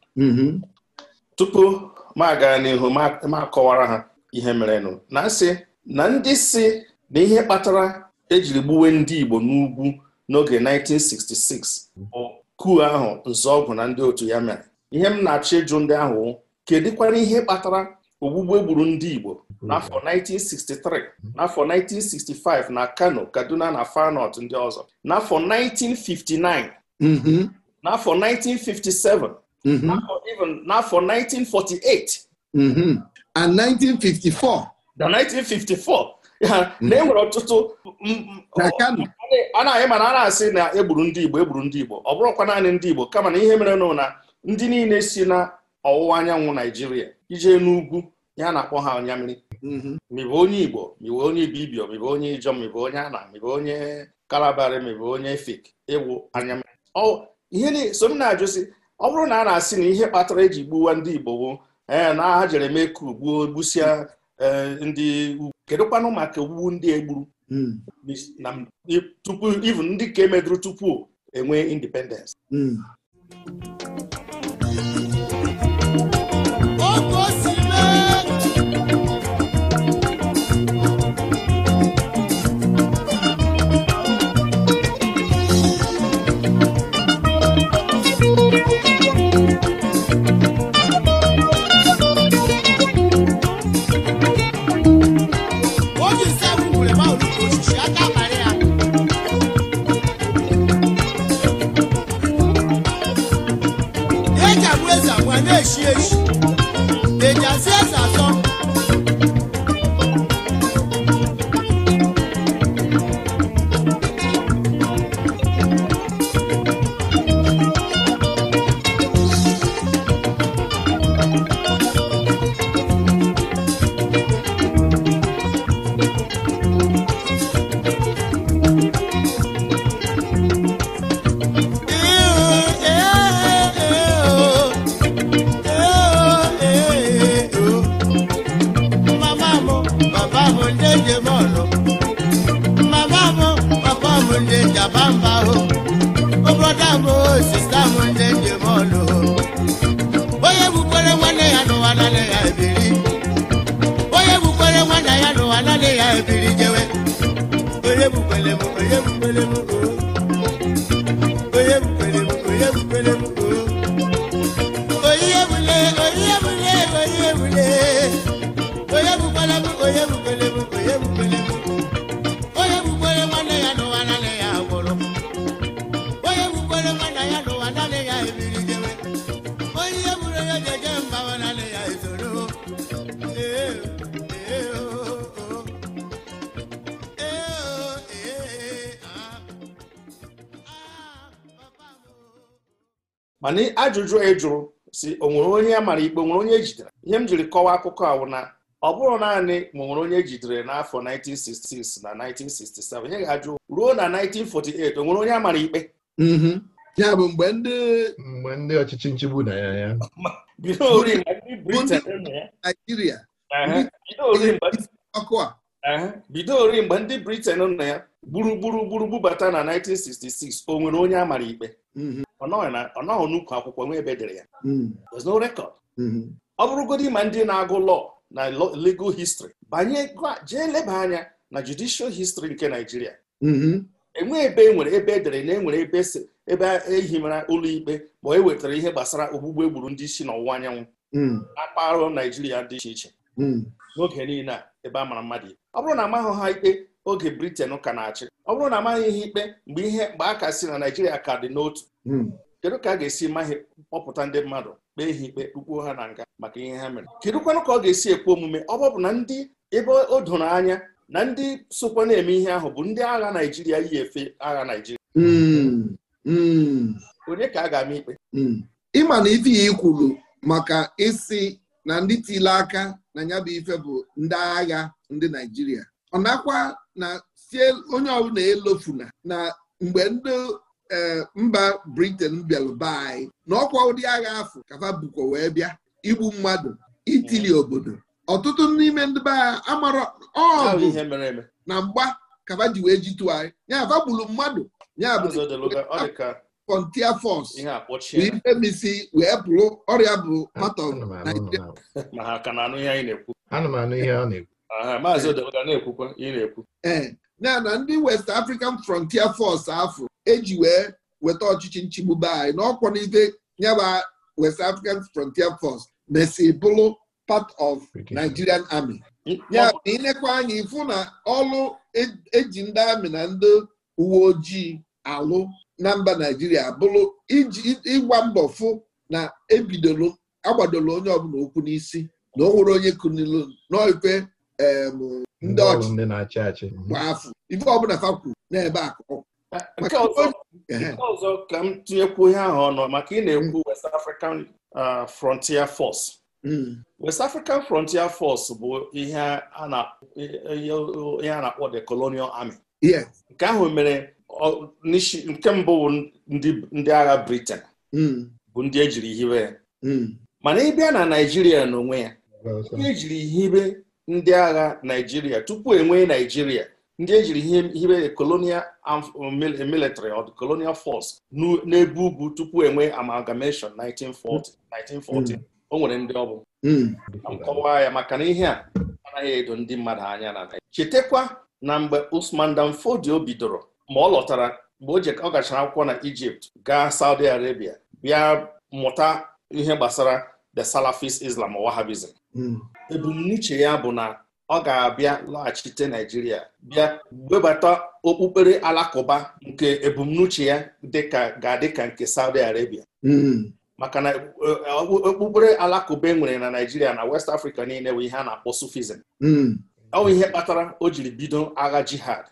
tupu ma gaa n'ihu ma kọwara ha ihe merenụ na sị na ndị si na ihe kpatara ejiri gbuwe ndị Igbo n'ugwu n'oge 1966 bụ ahụ nzọọgwụ na ndị otu ya mere ihe m na-achọ ịjụ ndị ahụ kedụkwara ihe kpatara ogbugbu egburu ndị Igbo n'afọ 1963 n'afọ 1965 na Kano Kaduna na Far ndị ọzọ n'afọ 1959 mhm. n'afọ 1957 Mm-hmm. even n'afọ 1948 mm-hmm. and 1954 mm, mm, na 1954 na enwere ọtụtụ a na-ahị mana a na-asị na egburu ndị Igbo egburu ndị Igbo ọ bụrụkwa naanị ndị Igbo kama na ihe mere nụ na ndị niile si na ọwụwa anyanwụ Naijiria ije n'ugwu ya na-akpọ ha ọnyamiri mebe mm-hmm. onye Igbo mebe onye Ibibio mebe onye Ijọ mebe onye Ana mebe onye Kalabari mebe onye Efik ịwụ anyamiri ihe so m na-ajụsi ọ bụrụ na a na-asị na ihe kpatara eji gbuwa ndị Igbo n'aha ee na ha jere mee ka ugbuo e, ndị ugwu kedụkwanụ maka ogbugbu ndị egburu hmm. tupu even ndị ka emedụrụ tupu enwe independence hmm. nwere m onye mana ajụjụ e jụrụ si o nwere onye a mara ikpe nwere onye ejidere ihe m jiri kọwaa akụkọ ahụ na ọ bụrụ naanị ma nwere onye ejidere n'afọ 1966 na 1967 ihe ga-ajụ ruo na 1948 o nwere onye amara ikpe mm-hmm. ya bụ mgbe ndị mgbe ndị ọchịchị nchigbu na ya ya bido ori mgbe ndị Britain ọkụ a bido ori mgbe ndị Britain nọ ya gburugburu gburu bubata na 1966 o nwere onye amara ikpe mm-hmm. ọ nọghị n'ukwu akwụkwọ nwa ebe dere ya mm-hmm. there's no record mm-hmm. ọ ma ndị na-agụ law na legal history banye jee leba anya na judicial history nke Nigeria enwe ebe e ebe edere na enwere ebe ebe ehimara ụlọ ikpe ma e wetara ihe gbasara ogbugbe egburu ndị isi n'ọwụwa anyanwụ na mm. mpaghara Naijiria dị iche iche mm. n'oge niile a ebe a mara mmadụ ikpe ọ bụrụ na amaghị ha ikpe oge briten ka na-achị ọ bụrụ na amaghị ihe ikpe mgbe ihe mgbe a ka si na naijiria ka dị n'otu hmm. kedu ka a ga-esi maghị kpọpụta ndị mmadụ kpee ha ikpe kpukpuo ha na nga maka ihe ha mere kedukwanụ ka ọ ga-esi ekwe omume ọ bụ na ndị ebe o doro anya na ndị sokwa na-eme ihe ahụ bụ ndị agha naijiria yi efe agha naijiria hmm. hmm. onye ka a ga-ama ikpe ịma na ife ya ikwuru maka isi na ndị tile aka na ya bụ ife bụ ndị agha ndị naijiria ọ nakwa na sie onye ọbụla elofuna na mgbe ndị e, mba briten bịalụ anyị na ọkwa ụdị agha afọ kafa bukwa wee bịa igbu mmadụ itili mm. obodo ọtụtụ n'ime ndị be agha amara ọ na mgba kafa ji wee jitụ anyị ya gburu mmadụ ya bụ frontier force ife misi wee bụrụ ọrịa bụ part of Nigeria ee ya na ndị West African Frontier Force afọ eji wee weta ọchịchị nchigbu be anyị na ọkwọ n'ife nyaba West African Frontier Force mesi bụrụ part of Nigerian Army ya na inekwa anya ifu na ọlụ eji e ndị amị na ndị uwe ojii alụ na mba naijiria bụrụ iji ịgwa mbọ fụ na ebidolo agbadolo onye ọbụla okwu n'isi na o nwere onye kunilu n'ofe ndị ọchịchị na-achị achị gba afọ ife ọbụla fa kwuru n'ebe akụ nke ọzọ ka m tinyekwu ihe ahụ ọnụ maka ị na-ekwu hmm. West African Frontier Force hmm. West African Frontier Force bụ ihe a na-akpọ the Colonial Army nke ahụ mere nke mbụ bụ ndị agha Britain hmm. bụ ndị ejiri hibe ya hmm. mana ịbịa na Naijiria n'onwe ya ndị ejiri hibe ndị agha Naijiria tupu enwee Naijiria ndị ejiri hibe colonial military or colonial force n'ebe ugwu tupu enwee amalgamation 1940 1940 hmm. o nwere ndị ọ bụ nkọwa ya maka na ihe a anaghị edo ndị mmadụ anya na chetakwa na mgbe Usman Danfodio bidoro ma ọ lọtara mgbe o gachara akwụkwọ na Ijipt gaa Saudi Arabia bịa mụta ihe gbasara the Salafist Islam Wahabism. Hmm. ebumnuche ya bụ na ọ ga-abịa laghachite Naijiria bịa webata okpukpere alakụba nke ebumnuche ya ga-adị ka nke Saudi Arabia hmm. maka na eh, okpukpere alakụba e nwere na Naijiria na West Africa niile bụ ihe a na-akpọ Sufism hmm. ọ bụ ihe kpatara o jiri bido agha jihad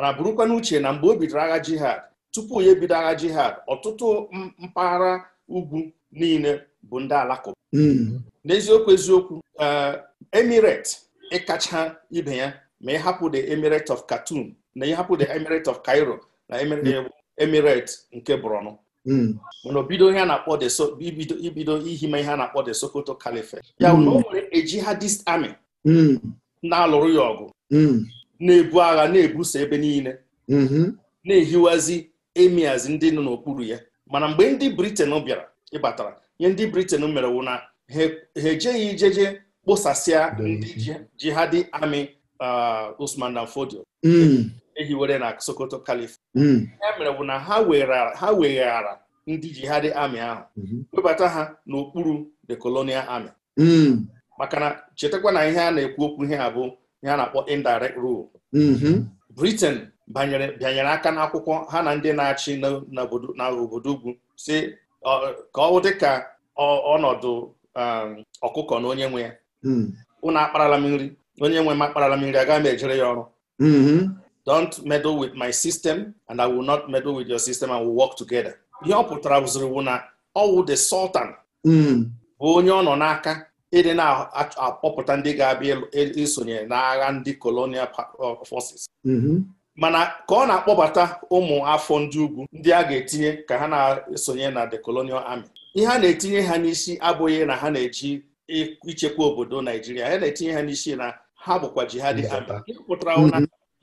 mana burukwa n'uche na mgbe o bidoro agha jihad tupu ya ebido agha jihad ọtụtụ mpaghara ugwu niile bụ ndị alakụba hmm. n'eziokwu eziokwu eh, emirate ịkacha ibe ya ma ịhapụ the emirate of Khartoum na ịhapụ the emirate of Cairo na hmm. emirate nke Borno hmm. mana bido ihe a na-akpọ ibido ihima ihe a na-akpọ the Sokoto Caliphate ya o nwere a jihadist army na-alụrụ ya ọgụ na-ebu agha na-ebuso ebe niile mhm. na-ehiwazi emiazi ndị nọ n'okpuru ya mana mgbe ndị briten bịara ịbatara ihe ndị briten mere wụ na ha ejeghị ijeje kpụsasịa ndị jihadi amị uh, Usman dan Fodio mm. ehiwere na Sokoto Kalif ya mm. mere wụ na ha weghara ndị jihadi amị ahụ mhm. webata ha n'okpuru the colonial army mm. maka na chetakwa na ihe a na-ekwu okwu ihe a bụ ya na-akpọ indirect rule mm-hmm. Britain banyere bịanyere aka n'akwụkwọ ha na ndị na-achị na obodo ugwu si ka ọ dị ka ọnọdụ um, ọkụkọ na onye nwe ya mm. unu akparala m nri onye nwe m akparala m nri agaghị m ejere ya ọrụ mm-hmm. don't meddle with my system and I will not meddle with your system and will work together ihe ọ pụtara bụziri na ọwụ the sultan mm. bụ onye ọ nọ n'aka ịdị na-akpọpụta ndị ga-abịa isonye n'agha ndị colonial uh, forces mm-hmm. mana ka ọ na-akpọbata ụmụ afọ ndị ugwu ndị a ga-etinye ka ha na-esonye na the colonial army ihe a na-etinye ha n'isi abụghị na ha na-eji ichekwa obodo Naijiria ha na-etinye ha n'isi na ha bụkwa jihadi army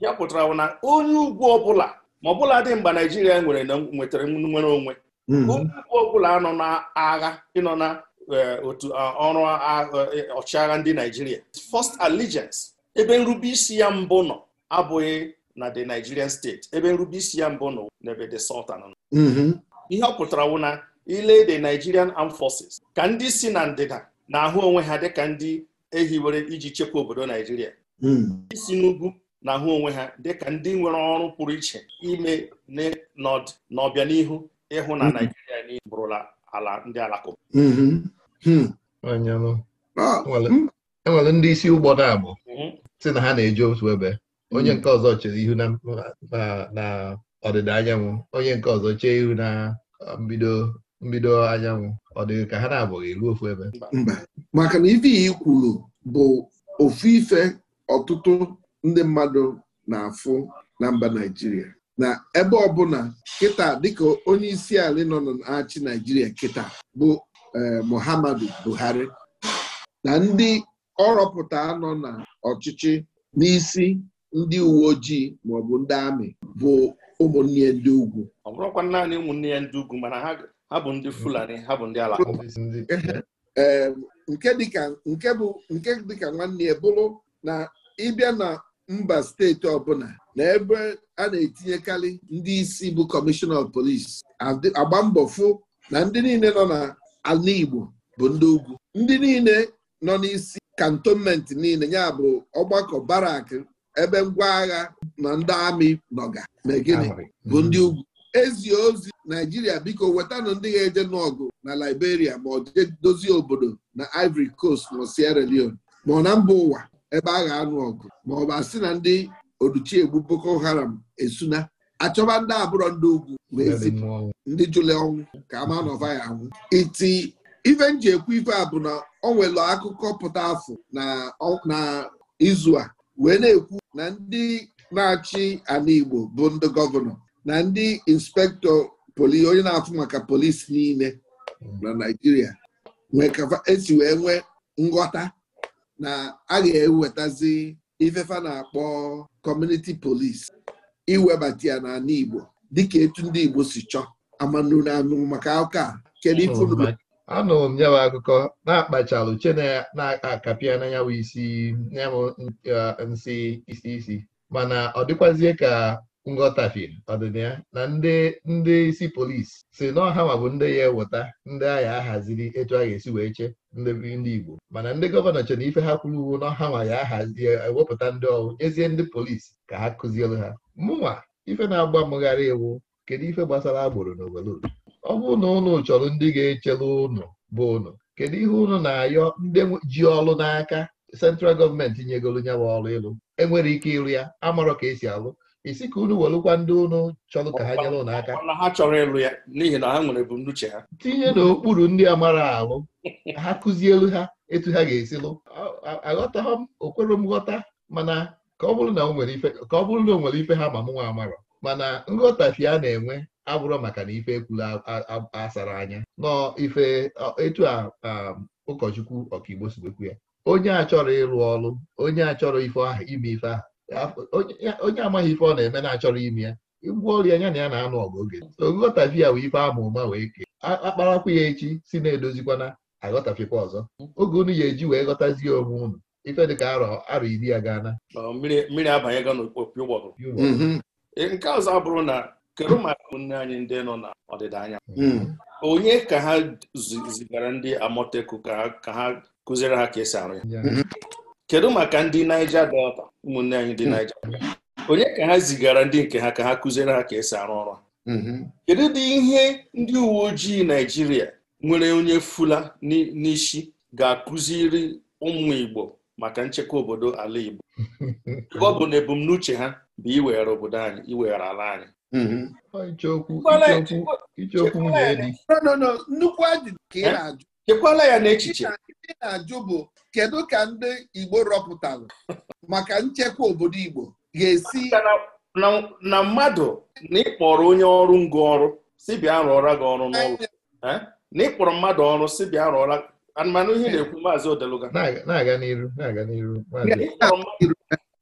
ya pụtara mm-hmm. na onye ugwu ọbụla ma ọbụla dị mgbe Naijiria nwere nwetara nwere onwe mm-hmm. onye ugwu ọbụla nọ n'agha ịnọ na Eh, otu ah, ọrụ ah, eh, ọchịagha ndị Naijiria first allegiance ebe nrube isi ya mbụ nọ abụghị na the Nigerian state ebe nrube isi ya mbụ nọ n'ebe the Sultan nọ mm-hmm. ihe ọ pụtara wụ na ile the Nigerian Armed Forces ka ndị si na ndịda na-ahụ onwe ha dịka ndị ehiwere iji chekwa obodo Naijiria mm. ndị n'ugwu na-ahụ onwe ha dịka ndị nwere ọrụ pụrụ iche ime n'ihu ịhụ na mm-hmm. Naijiria niile bụrụla ala ndị Alakụba mm-hmm. Hmm. Ah, enwere hmm. ndị isi ụgbọ na-abụ mhm. si na ha na-eje otu ebe onye hmm. nke ọzọ chere ihu na ọdịda anyanwụ onye nke ọzọ chee ihu na uh, mbido mbido anyanwụ ọ dịghị ka ha na-abụghị ruo ofu ebe mba maka na ife i kwuru bụ ofu ife ọtụtụ ndị mmadụ na-afụ na mba Naijiria na ebe ọbụla kịta dịka onye isi ala nọ na-achị Naijiria kịta bụ Eh, Muhammadu Buhari na ndị ọrọpụta nọ na ọchịchị n'isi ndị uwe ojii maọbụ ndị amị bụ ụmụnne ya ndị ugwu ọ bụrụkwa naanị ụmụnne ya ndị ugwu mana ha bụ ndị Fulani ha bụ ndị Alakụba ee nke dịka nke bụ nke dịka nwanne ya bụrụ na ịbịa na mba steeti ọbụla na ebe a na-etinyekarị ndị isi bụ kọmishọna ọf polisi agba mbọ fụ na ndị niile nọ na ala Igbo bụ ndị ugwu ndị niile nọ n'isi kantonment niile ya bụ ọgbakọ barak ebe ngwa agha na ndị amị nọga na bụ ndị ugwu ezi ozi Naijiria biko wetanụ ndị ga-eje n'ọgụ na Liberia ma ọ dozie obodo na Ivory Coast na Sierra Leone ma ọ na mba ụwa ebe agha anụ ọgụ ma ọ bụ asị na ndị oduchiegbu Boko Haram esuna achọba ndị abụrọ ndị ugwu ndị jụle ọnwụ ka ama nọva ya anwụ iti ife nji ekwu ife a bụ na ọ nwere akụkọ pụta afọ na izu a wee na-ekwu na ndị na-achị ala Igbo bụ ndị gọvanọ na ndị inspektọ poli onye na-afụ maka polisi niile na Naijiria esi e wee nwee nghọta na a ga-ewetazi ifefa na-akpọ kọmuniti polisi iwebata ya n'ala Igbo dịka etu ndị Igbo si chọọ amanụ na anụ maka aka kedu ifuru anụrụ m nyawa akụkọ na-akpachalụ uche na-akapịa na nyawa isi uh, nsị isi isi mana ọ dịkwazie ka nghọtafie fi ya na ndị ndị isi polisi si na ọha ma bụ ndị ya eweta ndị agha ahaziri etu a ga-esi wee chee ndị ndị Igbo mana ndị gọvanọ chere ife ha kwuru uwu na ọha ya ahazi ewepụta ndị ọrụ nyezie ndị polisi ka ha kụzielu ha mụnwa ife na-agba mụgharị iwu kedu ife gbasara agboro n'obodo ọ bụrụ na ụnụ chọrọ ndị ga-echere ụnụ bụ ụnụ kedu ihe ụnụ na-ayọ ndị ji ọrụ n'aka sentral gọọmenti nyegoro nyawa ọrụ ịlụ enwere ike ịrụ ya amarọ ka esi alụ isi ka unu welụkwa ndị unu chọrọ ka ha nyere ụnụ aka n'ihi na ha nwere ebumnuche ha tinye n'okpuru ndị a mara alụ ha kụzielu ha etu ha ga esilụ lụ aghọtaghị m okwere m ghọta mana ka ọ bụrụ na ọ nwere ife ha ma m nwa amara. mana nghọtafi a na-enwe abụrụ maka na ife ekwula asara anya nọ ife etu a ụkọchukwu ọkaigbo sigbekwu ya onye a chọrọ ịrụ ọrụ onye a chọrọ ife ime ife ahụ onye amaghị ife ọ na-eme na-achọrọ ime ya ngwa ọrịa ya na ya na-anụ ọgụ oge oghọtafi ya wee ife ama ụma wee kee akparakwa ya echi si na-edozikwana aghọtafikwa ọzọ oge unu ya eji wee ghọtazie onwe unu ife dịka arọ arọ iri ya gaana mmiri abanyego n'okpopi ụgbọgụ mm-hmm. e, nke ọzọ bụrụ na kedu maka ụmụnne anyị ndị nọ na ọdịda anyanwụ mm. onye ka ha zigara ndị amoteku ka ha kụziere ha ka esi arụ ya mm-hmm. kedu maka ndị Niger Delta ụmụnne anyị dị naijiria onye ka ha zigara ndị nke ha ka ha kụziere ha ka esi arụ ọrụ mm-hmm. kedu ụdị ihe ndị uwe ojii naijiria nwere onye fula n'isi ga-akụziri ụmụ Igbo maka nchekwa obodo ala Igbo ọ bụ na ebumnuche ha bụ iweghara obodo anyị iweghara ala anyị chekwala ya n'echiche ihe na-ajụ bụ kedu ka ndị Igbo rọpụtara maka nchekwa obodo Igbo ga-esi na mmadụ na ịkpọrọ onye ọrụ ngụ ọrụ si bịa rụọra gị ọrụ n'ụlọ na ịkpọrọ mmadụ ọrụ si bịa rụọra anụmanụ ihe na-ekwu maazị Odeluga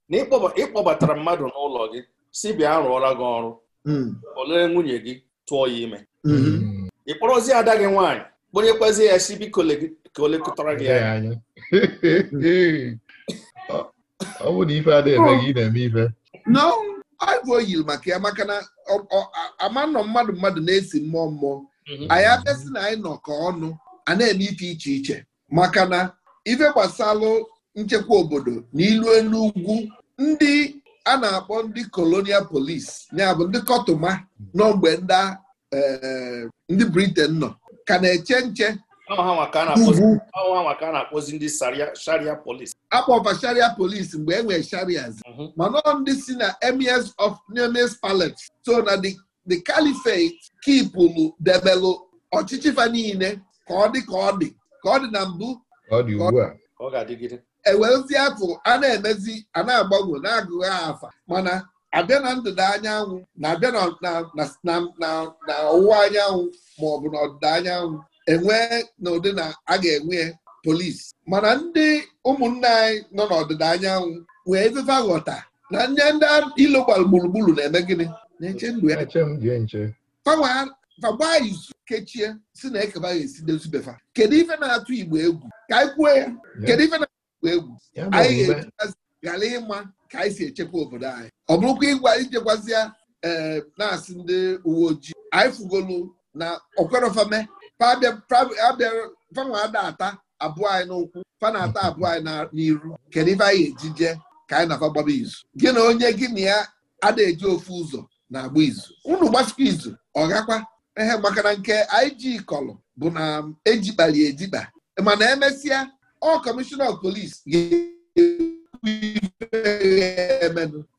na ịkpọbatara mmadụ n'ụlọ gị si bịa rụọra gị ọrụ hmm. olee nwunye gị tụọ ya ime hmm. ị kpọrọzie ada gị nwaanyị kponyekwazi ya chibi ka o lekọtara gị anya ọ bụ na ife adịghị eme gị ị na-eme ife aịbụ oyiri maka ya maka na ama nọ mmadụ mmadụ na-esi mmụọ mmụọ anyị mhm. abịasị na anyị nọkọ ọnụ a na-eme ife iche iche maka na ife gbasalụ nchekwa obodo na ilu elu ugwu ndị a na-akpọ ndị kolonial polis ya bụ ndị kọtụma n'ogbe eh, ndị Britain nọ ka na-eche nche akpọfa sharia polis mgbe e nwere sharias mhm. mana ndị si na emes of nemes palet so na the califate kipụlụ debelụ ọchịchị fa niile ka ọ dị ka ọ dị ka ọ dị na mbụ ewezie e afọ a na-emezi a na-agbanwe na-agụghị afa mana abịa na ndịda anyanwụ na-abịa na ọwụwa anyanwụ ma ọ bụ na ọdịda anyanwụ enwee na ụdị na a ga-enwe polisi mana ndị ụmụnne anyị nọ n'ọdịda anyanwụ wee fefe ghọta na ndị ndị ilo gbara gburugburu na-eme gịnị na-eche ndụ ya fagbaa izu kechie si na ekebaghị esi befa kedu ife na-atụ igbo egwu ka anyị kwuo ya kedu ife na-atụ igbo egwu anyị ga-eji ghara ịma ka anyị si echekwa obodo anyị ọ bụrụkwa ịgwa ijekwazịa ee eh, na-asị ndị uwe ojii anyị fugolu na okwerofame fanwa ada ata abụọ anyị n'ụkwụ fana ata abụọ anyị n'iru kedu ife anyị ejije ka anyị na gbaba izu gị na onye gị na ya ada eji ofu ụzọ na-agba izu unu gbasikwa izu ọ gakwa ehe maka na nke anyị ji kọlụ bụ na ejikpali ejikpa mana emesịa ọ kọmishọna polis gị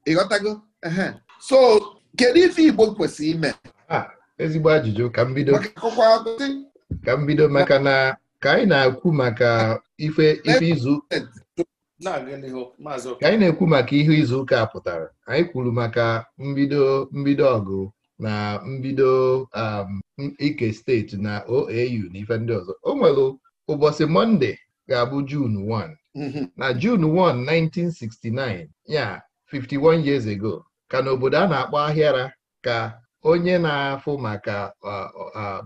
ịghọtago so kedu ife Igbo kwesịrị ime ah, ezigbo ajụjụ ka m bido ka mbido maka na ka anyị na-ekwu maka ife izu ka anyị na-ekwu maka ihe izu ụka pụtara anyị kwuru maka mbido mbido ọgụ na mbido um, ike steeti na OAU na ife ndị ọzọ o nwere ụbọchị Mọnde ga-abụ June 1 Mm-hmm. na June 1 1969 ya 51 years ago ka n'obodo a na-akpọ ahịara ka onye na-afụ maka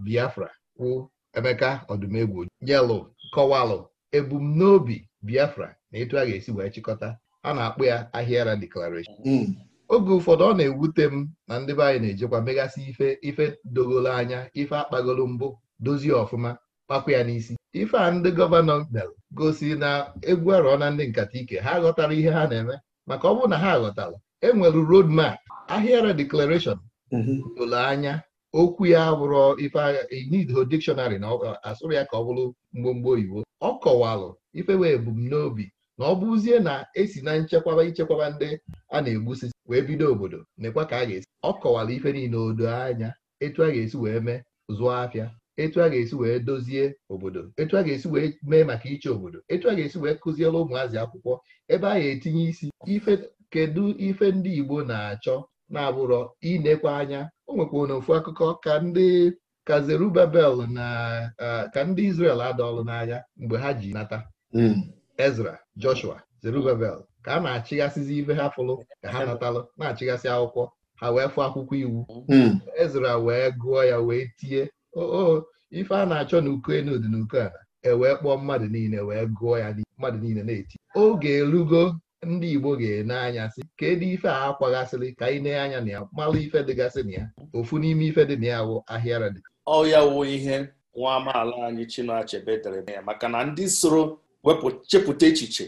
Biafra kwụ Emeka Ọdụmegwu yelụ kọwalụ ebumnobi Biafra na etu a ga-esi wee chịkọta a na-akpọ ya ahịara declaration mm. oge ụfọdụ ọ na-ewute m na ndị be anyị na-ejekwa megasị ife ife dogolo anya ife akpagolo mbụ dozie ọfụma kpakwa ya n'isi ife a ndị gọvanọ mere gosi na egwu arọ na ndị nkata ike ha ghọtara ihe ha na-eme maka ọ bụrụ na ha ghọtara enwere road map ahịara declaration mhm. ole anya okwu ya bụrụ ife inido dictionary na asụrụ ya ka ọ bụrụ mgbomgbo oyibo ọ kọwalụ ife wee ebumnobi na ọ bụzie na esi na nchekwaba ichekwaba ndị a na-egbusi wee bido obodo nekwa ka a ga-esi ọ kọwara ife niile odo anya etu a ga-esi wee mee zụọ afịa etu a ga-esi wee dozie obodo etu a ga-esi wee mee maka iche obodo etu a ga-esi wee kụziere ụmụazị akwụkwọ ebe a ga-etinye isi ife kedu ife ndị Igbo na-achọ na-abụrọ inekwa anya o nwekwa na ofu akụkọ ka ndị ka na ka ndị Izrel adọọlụ n'anya mgbe ha ji nata hmm. Ezra Joshua Zerubabel ka a na-achịghasịzi ife ha fụlụ ka ha natalụ na achịgasị akwụkwọ ha wee fụ akwụkwọ iwu hmm. Ezra wee gụọ ya wee tie oo ife a na-achọ na uko enu dị na ewee kpọọ mmadụ niile wee gụọ ya mmadụ niile na-eti oge erugo ndị Igbo ga-ene anya sị kedu ife a akwaghasịrị ka anyị nee anya na ya mmalụ ife dịgasị na ya ofu n'ime ife dị na ya wụ ahịara dị ọ ya wụ ihe nwa amaala anyị Chinua Achebe dere e ya maka na ndị soro wepụ chepụta echiche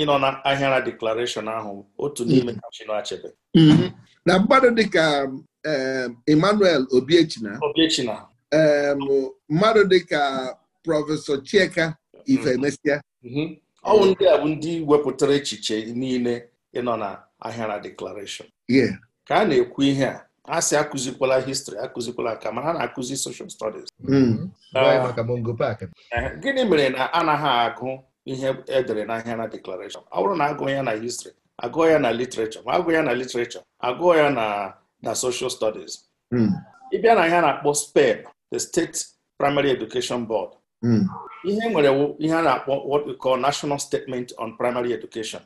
ịnọ na ahịara deklarashọn ahụ otu n'ime ka Chinua Achebe mm-hmm. na mmadụ dịka um, Emmanuel Obiechina Obiechina mmadụ dịka prọfesọ Chieka Ifemesịa mhm. mhm. ọnwụ ndị a bụ ndị wepụtara echiche niile ịnọ na ahịara deklarashọn ka a na-ekwu ihe a a sị akụzikwala histri akụzikwala ka mana ha na-akụzi social studies mm. mhm. ah. eh, gịnị mere na anaghị agụ ihe edere n'ahịa na deklarashọn ọ bụrụ na agụọ ya na histri agụọ ya na literature ma agụọ ya na literature agụọ ya na na social studies mm. ịbịa na ihe na-akpọ spen. the State Primary Education Board hmm. ihe nwere ihe a na-akpọ what we call National Statement on Primary Education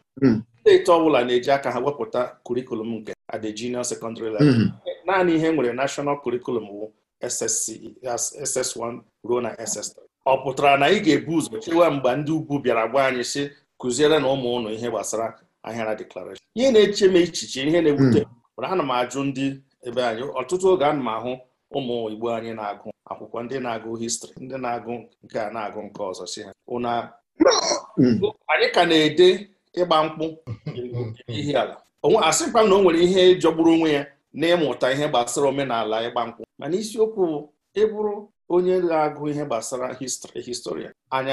steeti hmm. ọ bụla na-eji aka ha wepụta kurikulum nke at the junior secondary level hmm. naanị ihe nwere national curriculum wu SS1 ruo na SS3 ọ pụtara na ị ga-ebu ụzọ chewa mgbe ndị ugwu bịara gwa anyị si kụziere na ụmụ ụnụ ihe gbasara ahịara declaration ihe na-eche m echiche ihe na-ewute mana ana m ajụ ndị ebe anyị ọtụtụ oge ana m ahụ ụmụ Igbo anyị na-agụ akwụkwọ ndị na-agụ histri ndị na-agụ nke a na-agụ nke ọzọ si ha ụna anyị ka na-ede ịgba mkpụ Ihe ala onwe asịkwa na o nwere ihe jọgburu onwe ya na-ịmụta ihe gbasara omenala ịgba mkpụ mana isiokwu ịbụrụ onye na-agụ ihe gbasara histri historia anyị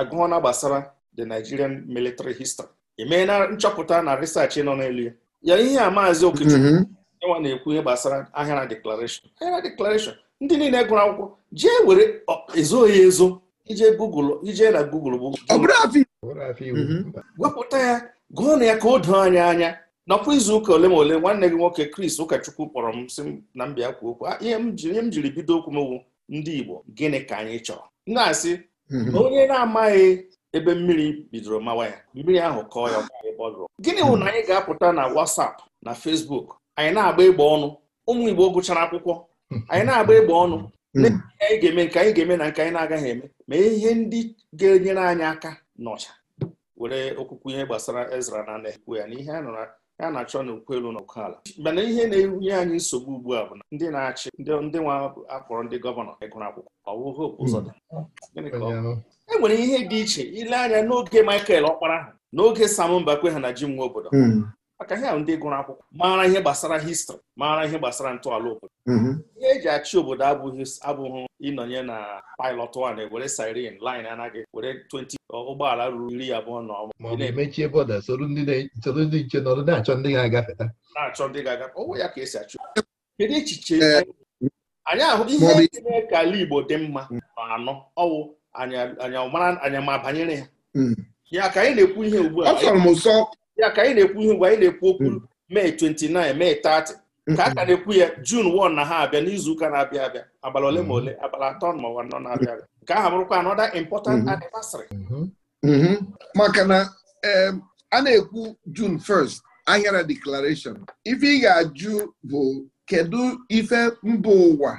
agụọ na gbasara the Nigerian military history emee na nchọpụta na research nọ n'elu ya ya ihe a maazị Okechukwu mm-hmm. enwa na-ekwu ihe gbasara ahịara ahịara ndị niile gụrụ akwụkwọ jee were ezoghị ezo ije Google ije na Google bụ mhm. wepụta ya gụọ na ya ka o doo anyị anya nakwa izu ụka ole ma ole nwanne gị nwoke Kris ụkọchukwu kpọrọ m sị na mbịa kwa okwu ihe m jiri bido okwu m wu ndị Igbo gịnị ka anyị chọrọ na-asị mhm. onye na-amaghị ebe mmiri bidoro mawa ya mmiri ahụ kọọ ya gịnị bụ na anyị ga-apụta na WhatsApp na Facebook anyị na-agba ịgba ọnụ ụmụ Igbo gụchara akwụkwọ anyị na-agba egbe ọnụ hmm. anyị ga-eme nke anyị ga-eme na nke anyị na-agaghị eme ma ihe ndị ga-enyere anyị aka n'ọcha were okwukwu ihe gbasara Ezra na na-ekwu ya na ihe a na-achọ n'okwu elu na okwu ala mana ihe na-enye anyị nsogbu ugbu a bụ na ndị na-achị ndị nwa akpọrọ ndị gọvanọ ịgụrụ akwụkwọ ọwụhụ hmm. ụzọ e nwere ihe dị iche ile anya n'oge Michael ọkpara ahụ n'oge Sam Mbakwe ha na ji nwa obodo hmm. maka ha ndị gụrụ akwụkwọ maara ihe gbasara histrị maara ihe gbasara ntọala obodo mm-hmm. ihe eji achị obodo abụghị abụghị ịnọnye na pilot one ewere siren line anaghị were 20 ụgbọala ruru iri abụọ na ọma mechie bọda soro ndị ndị nche nọrọ na-achọ ndị ga-agafeta na-achọ ndị ga-agafe ọwụ ya ka esi achị kedu echiche anyị ahụ ihe na-eme ka ala Igbo dị mma anọ ọwụ anya mara banyere ya mm. ya ka anyị na-ekwu ihe ugbu a ya ka anyị na-ekwu ihe mgbe anyị na-ekwu okwu mee 29 mee 30 ka a ka hmm. na-ekwu ya jun 1 na ha abịa n'izu ụka na-abịa abịa abalị ole ma hmm. ole abalị atọ ma ụwa nọ na-abịa abịa nke ahụ bụrụkwa anọda important hmm. anniversary maka na a na-ekwu jun 1st ahịara declaration ife ị ga-ajụ bụ kedu ife mba ụwa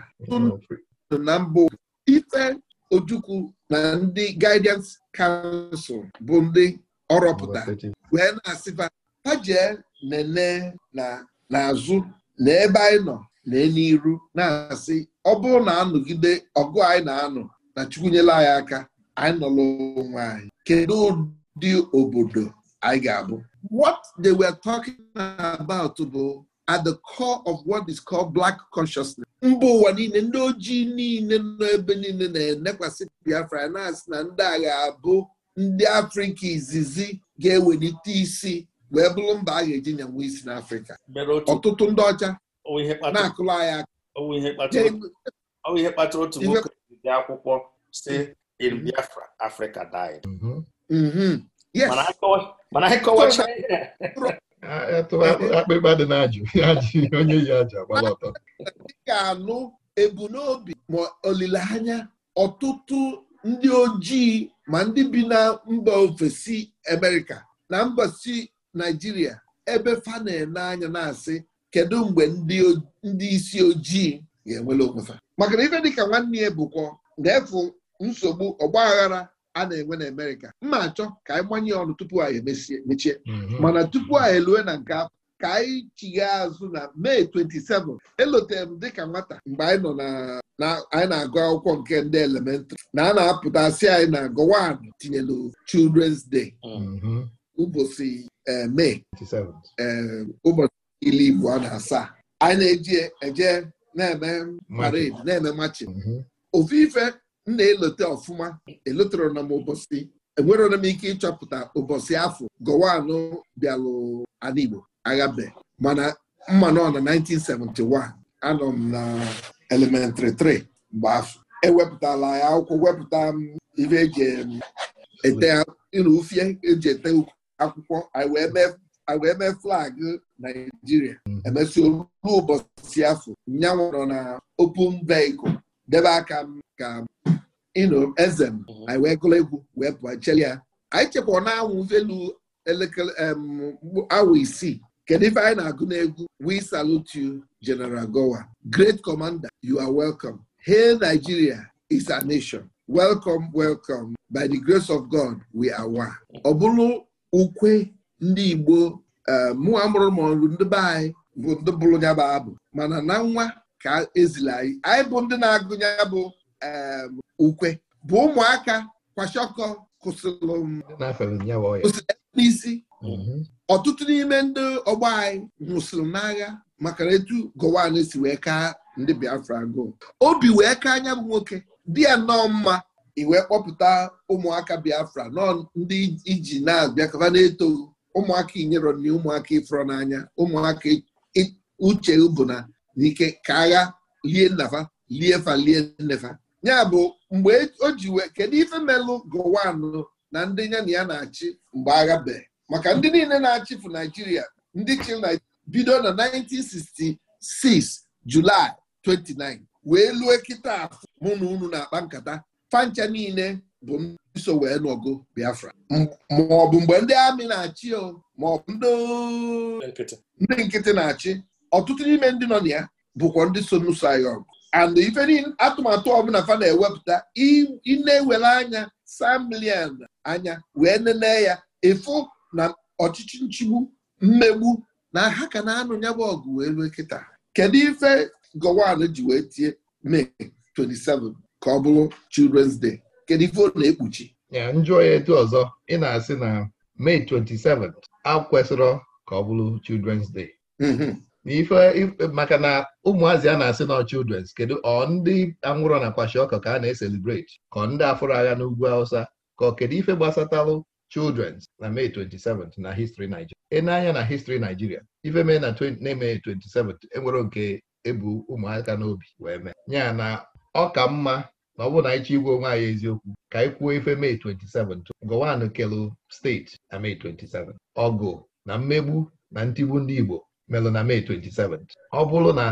na mba ife ojukwu na ndị guidance council bụ ndị ọrọpụta wee na-asịba ha jee nene na n'azụ na ebe anyị nọ na n'iru na-asị ọ bụrụ na anọgide ọgụ anyị na-anọ na Chukwu nyela anyị aka anyị nọla onwe anyị kedu ụdị obodo anyị ga-abụ what they were talking about bụ at the core of what is called black consciousness. mba ụwa niile ndị ojii niile nọ ebe niile na-enekwasị Biafra na-asị na ndị agha abụ ndị Afrịka izizi ga-ewelite isi wee bụrụ mba a ga-eji nyanwe isi n'Afrịka ọtụtụ ndị ọcha na-akụla anyị aka ihe kpatara otu nwoke akwụkwọ si in mhm. Biafra Africa mhm. Mhm. mana dị na-ajụ ị ga-anụ ebumnobi ma olileanya ọtụtụ ndị ojii ma ndị bi na mba ofesi Amerịka na mba si Naijiria ebe fa na-ene anya na-asị kedu mgbe ndị isi ojii ga-enwere onwefa maka na ife dịka nwanne ya bụkwa ga-efu nsogbu ọgba aghara a na-enwe na Amerịka mma achọ ka anyị gbanye ọnụ tupu anyị emechie mhm. mana tupu anyị elue na nke ka anyị chigha azụ na mee 27 elotere m dịka nwata mgbe anyị nọ na anyị na-agụ akwụkwọ nke ndị elementrị na a na-apụta asị anyị na gowan tinyelu children's day mhm. ụbọchị eh, mee eh, ụbọchị Ibu igbo na asaa anyị na-eji eje na-eme parade na-eme mhm. ofu ife m na-elote ọfụma elotere na m ụbọchị m ike ịchọpụta ụbọchị afọ gowanụ bịalụ ala aghabe mana mma nọ na 1971 anọ m na elementịrị 3 mgbe afọ ewepụtala ya akwụkwọ wepụta m ife eji ete ufie eji ete akwụkwọ anyị wee mee flagụ naijiria emesịa olu ụbọchị afọ nyanwụ nọ na open vehicle debe aka m ka ịnụ eze m anyị wee gụrụ egwu wee pụọ cheli ya anyị chekwa na anwụ velu elekere isii kedu ife anyị na-agụ na-egwu we salute you General Gowa great commander you are welcome hail Nigeria is a nation welcome welcome by the grace of God we are one. ọ bụrụ ukwe ndị Igbo eh, "Mụ amụrụ maọbụ ndị be anyị bụ ndị bụrụ ya bụ abụ mana na nwa ka ezila anyị anyị bụ ndị na-agụ ya bụ eh, ukwe bụ ụmụaka kwashọkọ kwụsịrị n'isi Mm-hmm. ọtụtụ n'ime ndị ọgbọ anyị nwụsịrị n'agha maka etu Gowon si wee kaa ndị Biafra agụụ obi wee kaa anya bụ nwoke dị ya nnọọ mma iwee kpọpụta ụmụaka Biafra nọọ ndị iji na-abịakọba na-eto ụmụaka inyero na ụmụaka ịfụrọ n'anya ụmụaka uche bụ na n'ike ka agha lie nnafa lie fa lie nnefa ya bụ mgbe o ji kedu ife melụ Gowon na ndị ya na ya na-achị mgbe agha bee maka ndị niile na fụ Naijiria ndị chiri bido na 1966 Julaị 29 wee lue kịta afọ mụ na unu na-akpa nkata fancha niile bụ ndị so wee nọgo Biafra maọbụ mgbe ndị amị na-achị maọbụ ndị nkịtị na-achị ọtụtụ n'ime ndị nọ na ya bụkwa ndị so n'ụsọ and ife atụmatụ ọbụla fa na-ewepụta ị ewere anya anya wee nene ya ịfụ na ọchịchị nchigbu mmegbu na ha ka na-anụ ya bụ ọgụ wee rue kịta kedu ife Gowon ji wee tie Mee 27 ka ọ bụrụ Children's Day kedu ife ọ na-ekpuchi njụọ ya etu ọzọ ị na-asị na Mee 27 a kwesịrọ ka ọ bụrụ Children's Day mm-hmm. n'ife maka na ụmụazị a na-asị na children's kedu ọ ndị anwụrọ na kwashiọkọ ka a na-eselebrate ka ọ ndị afụrụ agha n'ugwu Hausa ka ọ kedu ife gbasatalụ children's na May 27th na history Nigeria ị na-anya na history Nigeria ife na May 27th enwere nke ebu ụmụaka n'obi wee mee ya na ọ ka mma na ọ bụrụ na igwe onwe anyị eziokwu ka anyị kwuo ife May 27th kelu steeti na May 27 ọgụ na mmegbu na ntigbu ndị Igbo melụ na May 27 ọ bụrụ na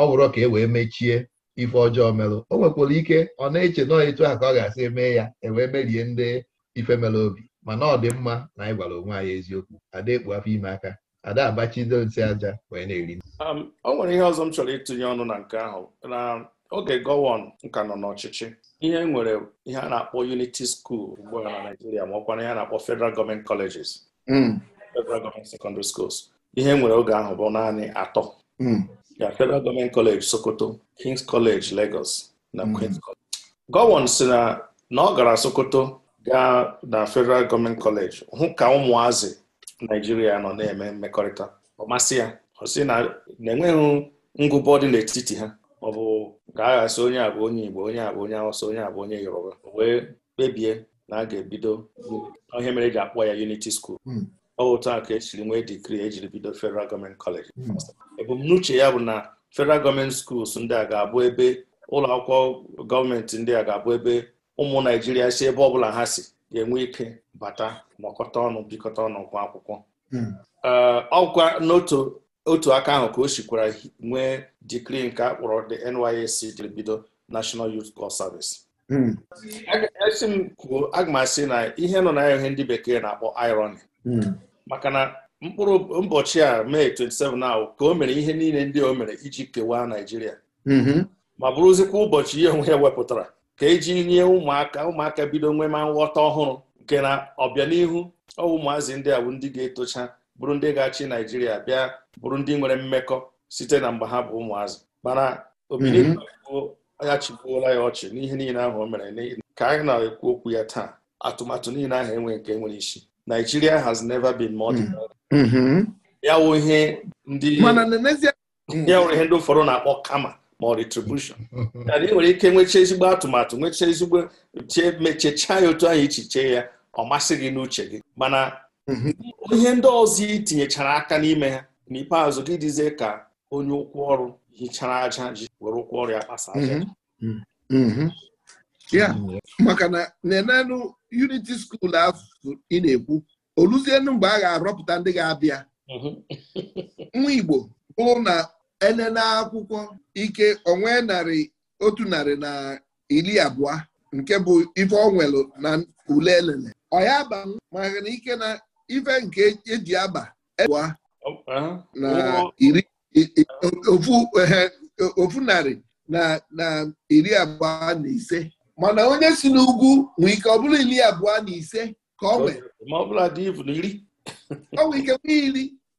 ọ bụrụ ka e wee mechie ife ọjọọ melụ o nwekwara ike ọ na-eche nọọ etu a ka ọ ga-asị mee ya ewee merie ndị ife melụ obi mana ọ dị mma na anyị gwara onwe anyị eziokwu ada ekpu afọ ime aka ada abachido nsị aja wee na-eri um, o nwere ihe ọzọ m chọrọ ịtụnye ọnụ na nke ahụ na oge gọwon nka nọ n'ọchịchị ihe nwere ihe a na-akpọ unity school ugbu a na Naijiria ma ọkwa na ihe a na-akpọ federal gọọmenti colleges hmm. federal gọọmenti secondary schools ihe nwere oge ahụ bụ naanị atọ hmm. ya federal gọọmenti college Sokoto King's College Lagos na hmm. Queen's College gọwon si na na ọ gara Sokoto gaa na Federal Gọọment Kọleji hụ ka ụmụazị Naijiria nọ na-eme mmekọrịta ọ masị ya ọ sị na na-enweghị ngụbọ dị n'etiti ha ọ bụ ga onye abụ onye Igbo onye abụ onye Awụsa onye abụ onye Yoruba wee kpebie na a ga-ebido ihe mere eji akpọ ya yuniti School hmm. ọ otu aka ka esiri nwee dikri ejiri bido Federal Gọọmenti Kọleji. Hmm. ebumnuche ya bụ na Federal Gọọmenti Schools ndị a ga-abụ ebe ụlọ akwụkwọ gọọmenti ndị a ga-abụ ebe ụmụ naijiria si ebe ọbụla ha si ga-enwe ike bata nọkọta ọnụ bikọta ọnụ gwa akwụkwọ hmm. ọgwa n'otu otu aka ahụ ka o sikwara nwee dikri nke akpọrọ kpọrọ the NYSC dbido bido National Youth Corps Service hmm. esi m kwuo aga m asị na ihe nọ na ihe ndị bekee na-akpọ irony hmm. maka na mkpụrụ ụbọchị a mee 27 ahụ ka o mere ihe niile ndị o mere iji kewaa Naijiria ma bụrụzikwa ụbọchị ihe onwe ya wepụtara ka eji nye ụmụaka ụmụaka bido nwe ma nghọta ọhụrụ nke na ọbịanihu ọwụ ụmụazị ndị a bụ ndị ga-etocha bụrụ ndị ga-achị naijiria bịa bụrụ ndị nwere mmekọ site na mgbe ha bụ ụmụazị mana obiligbo mhm. ya ya ọchị n'ihe niile ahụ o mere ka anyị na-ekwu okwu ya taa atụmatụ niile ahụ enwe nke nwere isi Nigeria has never been more mhm. Mhm. ya wụ ihe ndị ụfọdụ na-akpọ kama ma ọ retribushọn ị nwere ike nwecha ezigbo atụmatụ nwechaa ezigbo mechecha mechechaa ya otu anyị ichiche ya ọ masị gị n'uche gị mana mhm. ihe ndị ọzọ ị tinyechara aka n'ime ha n'ikpeazụ gị dịzie ka onye ụkwụ ọrụ hichara aja ji were ụkwụ ọrụ ya kpasa aja mhm. Mhm. ya maka na nenenụ unity skuul afụ ị na-ekwu oluzienu mgbe a ga-arọpụta ndị ga-abịa nwa Igbo bụrụ na enene akwụkwọ ike onwe narị otu narị na iri abụọ nke bụ ife ọ onwelu na ule elele ọya aba maka na ike na ife nke eji aba e abụọ na iri ofu narị na iri abụọ na ise mana onye si n'ugwu nwee ike ọ bụrụ iri abụọ na ise ka ọ nwee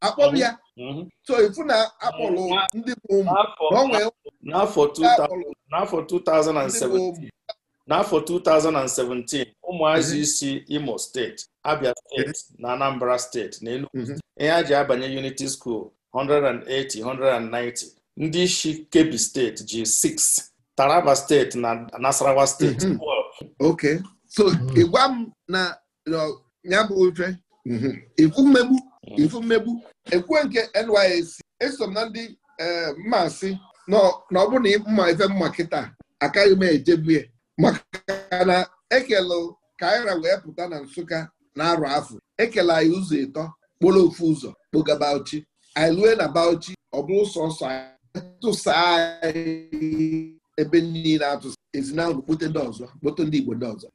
ọ nwee Mhm. so ifu na akpọrọ ndị bụ n'afọ 2017 n'afọ 2017 ụmụazị mhm. isi Imo steeti Abia steeti mhm. na Anambra steeti na Enugu ihe a ji abanye Yuniti skool 180 190 ndị isi kebi steeti ji 6 Taraba steeti na Nasarawa steeti ok so ịgwa m na ya bụ ife ifu mmegbu Mm. ifu mmegbu ekwe nke NYSC esom na ndị eh, mmasị na ọ bụrụ na mma ife mma kịta akaghị m ejebue maka na ekelu kaira wee pụta na Nsụka na arụ afọ ekele anyị ụzọ ịtọ kpọrọ ofu ụzọ kpoga Bauchi anyị lue na Bauchi ọ bụrụ sọsọ tụsa anyị ebe niile atụsa ezinụlọ kpote ndị ọzọ kpote ndị Igbo ndị ọzọ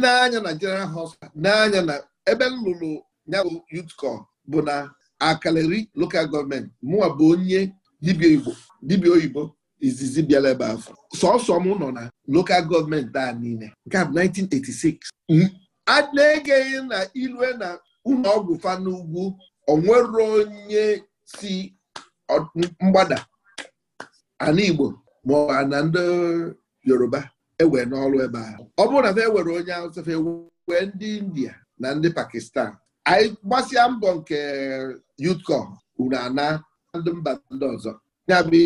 n'anya na General Hospital n'anya na ebe m ya bụ Youthcom bụ na Akaleri lokal gọọmenti mụwa bụ onye dibia Igbo dibịa oyibo izizi bịara ebe afọ sọsọ m nọ na lokal gọọmenti a niile nke a bụ 1986 a na-egeghị na ilue na ụlọ ọgwụ fa n'ugwu onwere onye si mgbada ana Igbo ma na ndị Yoruba ewe n'ọrụ ebe ahụ ọ bụrụ na fa ewere onye Hausa fa e ndị India na ndị Pakistan anyị gbasịa mbọ nke yutko uru ana ndị mba ndị ọzọ ya bụ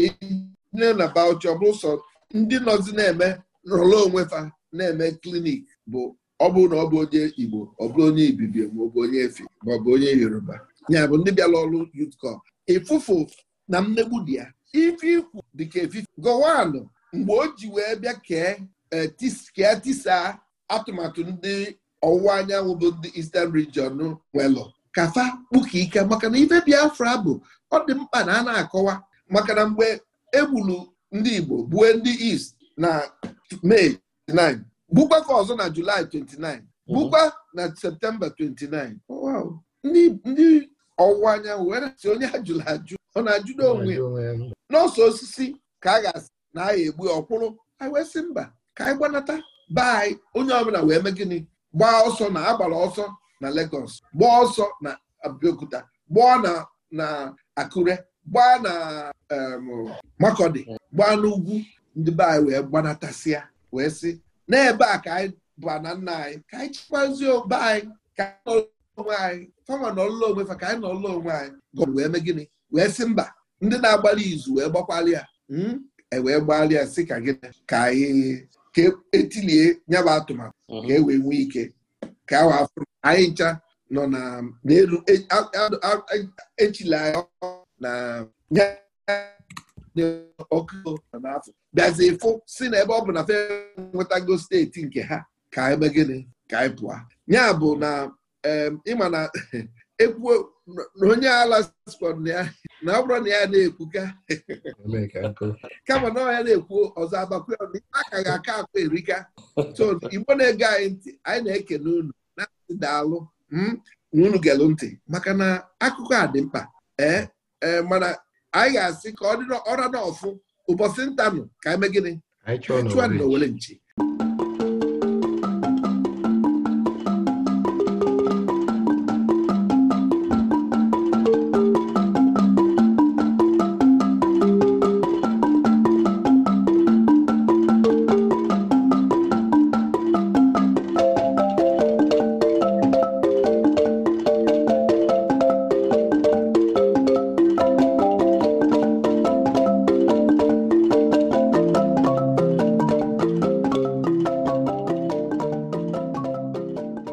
nne na bauchi ọ bụrụ sọ ndị nọzi na-eme nrọrọ onwe fa na-eme klinik bụ ọ bụrụ na ọ bụ onye igbo ọ bụrụ onye ibibio ma ọ bụ onye efe ma ọ bụ onye yoruba ya bụ ndị bịara ọrụ yutko ịfụfụ na mmegbu dị ya ife ikwu dịka efife gọwanụ mgbe o ji wee bịa kee eh, tisa atụmatụ ndị ọwụwa anyanwụ bụ ndị Eastern region nwelụ kafa kpuka ike maka na ife Biafra bụ ọ dị mkpa na a na-akọwa maka na mgbe egbulu ndị Igbo bụe ndị East na May 29 gbukwa ka ọzọ na Julaị 29 gbukwa na Septemba 29 ndị ọwụwa anyanwụ were si onye ajụla ajụ ọ na ajụda onwe n'ọsọ osisi ka a ga-asị na a ga-egbu ọkwụrụ anyị wee sị mba ka anyị gbanata be anyị onye ọbụla wee mee gịnị gbaa ọsọ na agbara ọsọ na Lagos gbaa ọsọ na Abeokuta gbaa na na Akure gbaa na Makọdị gbaa n'ugwu ndị be anyị wee gbanatasịa wee sị n'ebe a ka anyị ba na nna anyị ka anyị chịkwazi obe anyị ka anyị nọrọ onwe anyị fama nọrọla onwe fa ka anyị nọrọla onwe anyị gọọmenti wee mee gịnị wee sị mba ndị na-agbalị izu wee gbakwalị ya hmm, ewee gbalị ya sị ka gịnị ka anyị ka etilie nyaba atụmatụ mhm. ka e wee nwee ike ka awa afọ anyị ncha nọ n'elu e, echila na ọkụ n'afọ bịazi ịfụ si na ebe ọ bụ na fe nwetago steeti nke ha ka anyị megịnị ka anyị pụọ ya bụ na ịma na. ekwuo na onye ala sikwa na ya na ọ bụrụ na ya na ekwuka kama na ọya na-ekwu ọzọ agbakwe na ife aka ga-aka akụ erika so igbo na-ege anyị ntị anyị na ekene unu na-asị daalụ hmm, na unu gelụ ntị maka na akụkọ a dị mkpa ee eh, eh, mana anyị ga-asị ka ọ dị ọra n'ọfụ ụbọchị ntanụ ka anyị mee gịnị chụa na owele nchi